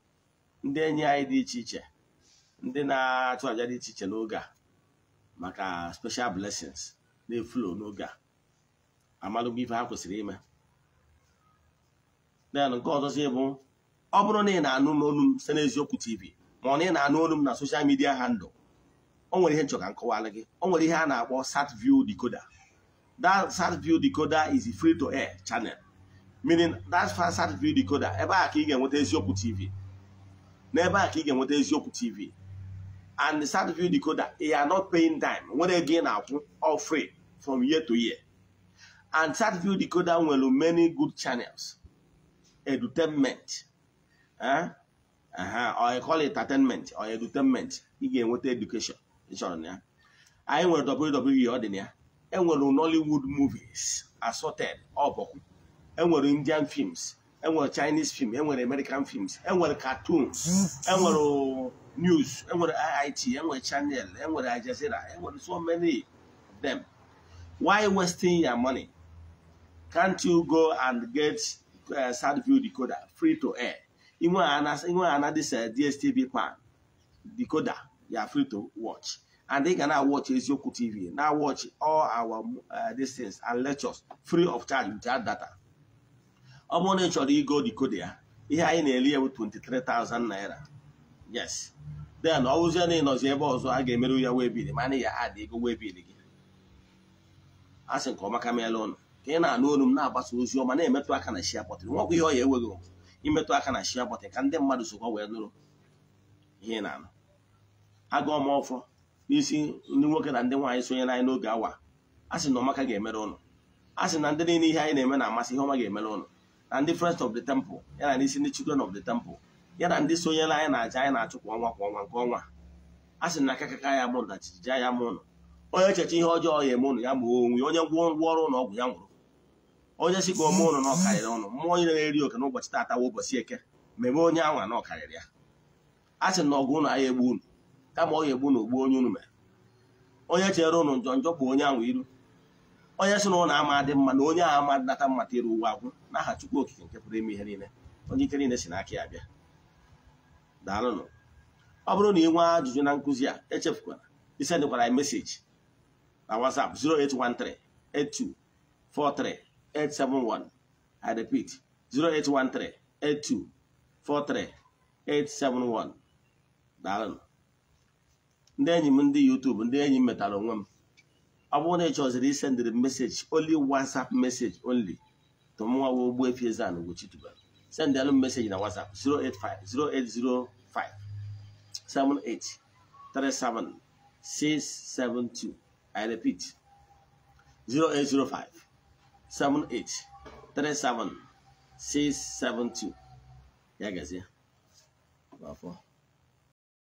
ndị enyi anyị dị iche iche ndị na-achụ aja dị iche iche n'oge a maka special blessings na-efulo n'oge a amalụgo ife ha kwesịrị ime den nke ọzọzi bụ ọ bụrụ na ị na-anụ n'olu m site n'eziokwu tv ma ọ na ị na-anụ olu m na soshal midia handụl o nwere ihe nchọ ka nkọwala gị o nwere ihe a na-akpọ sat-view decoder that sat-view decoder is free to air channel meaning that sat-view decoder ebe a ka ị ga-enweta eziokwu TV na ebe a ka ị ga-enweta eziokwu TV and the sat-view decoder you are not paying time nwere ego gain na-akwụ all free from year to year and sat-view decoder nwere many good channels edutainment eh? or I call it entertainment or edutainment ị ga-enweta education ịchọrọ na ya anyị nwere WWE ọ dị na ya enwere Nollywood movies assorted all ọbọkwu enwere Indian films enwere Chinese film enwere American films enwere cartoons enwere news enwere IIT enwere channel enwere Al Jazeera enwere so many of them why wasting your money can't you go and get uh, Sadview decoder free to air inwe ana this uh, DSTV plan decoder ya are free to watch and they can now watch eziokwu tv now watch all our uh, these and lectures free of charge without data ọ bụrụ na ị chọrọ ịgo decode ya ihe anyị na-eli ya bụ 23,000 naira yes then ọ bụzie na ịnọzi ebe ọzọ a ga-emerụ ya webil mana ya adị ego webil gị a sị nke ọma ka meela ụnụ ka ị na-anụ olu m na-agbasa ozi ọma na-emetụ aka na shia bọtịn nwekwa ihe ọ ya enweghị imetụ aka na shia bọtịn ka ndị mmadụ sokwa wee nụrụ ihe na-anụ agụọma ọfọ n'isi ndị nwoke na ndị nwaanyị sonye anyị n'oge awa a sị na ọmaka ga-emere ụnụ a sị na ndị niile ihe anyị na-eme na-amasị ihe ọma ga-emere ụnụ na ndị frest of the temple ya na n'isi ndị children of the temple ya na ndị sonyere anyị na aja anyị na-achụ kwa ọnwa kwa ọnwa nke ọnwa a sị na akakaka ya mụrụ na chijiji ya ma ụnụ onye echeche ihe ọjọọ ya eme ụnụ ya gbuo onwe onye gwụọ ngwa ọrụ ụlọ ọgwụ ya nwụrụ onye si ka ome ụnụ na ọkarịrị ụnụ mmụọ onye na-eri oke n'ụbọchị tata ụbọchị eke mebe onye anwa na ọkarịrị ya a sị na ọgụ ụnụ agha egbu ụnụ kama ọ ga-egbu na ogbu onye unu mere onye chere ụnụ njọ njọ bụ onye ahụ iru onye si na ụlọ ama dị mma na onye ahụ ama nata mmata iru ụwa agwụ n'aha Chukwu okike nke pụrụ ime ihe niile onye ike niile si n'aka ya bịa daalụnụ ọ bụrụ na ị nwee ajụjụ na nkụzi a echefukwara isendịkwara ya meseji na WhatsApp 08138243871 I repeat 08138243871 daalụnụ ndị enyi m ndị YouTube ndị enyi m metara onwe m ọ bụrụ na ị chọziri isendịrị meseji only WhatsApp meseji oli tụmụnwawa Ogbuefi Eze-Ana sendịalụ m meseji na WhatsApp 0805 78 37 672 I repeat 0805 78 37 672 ya gazie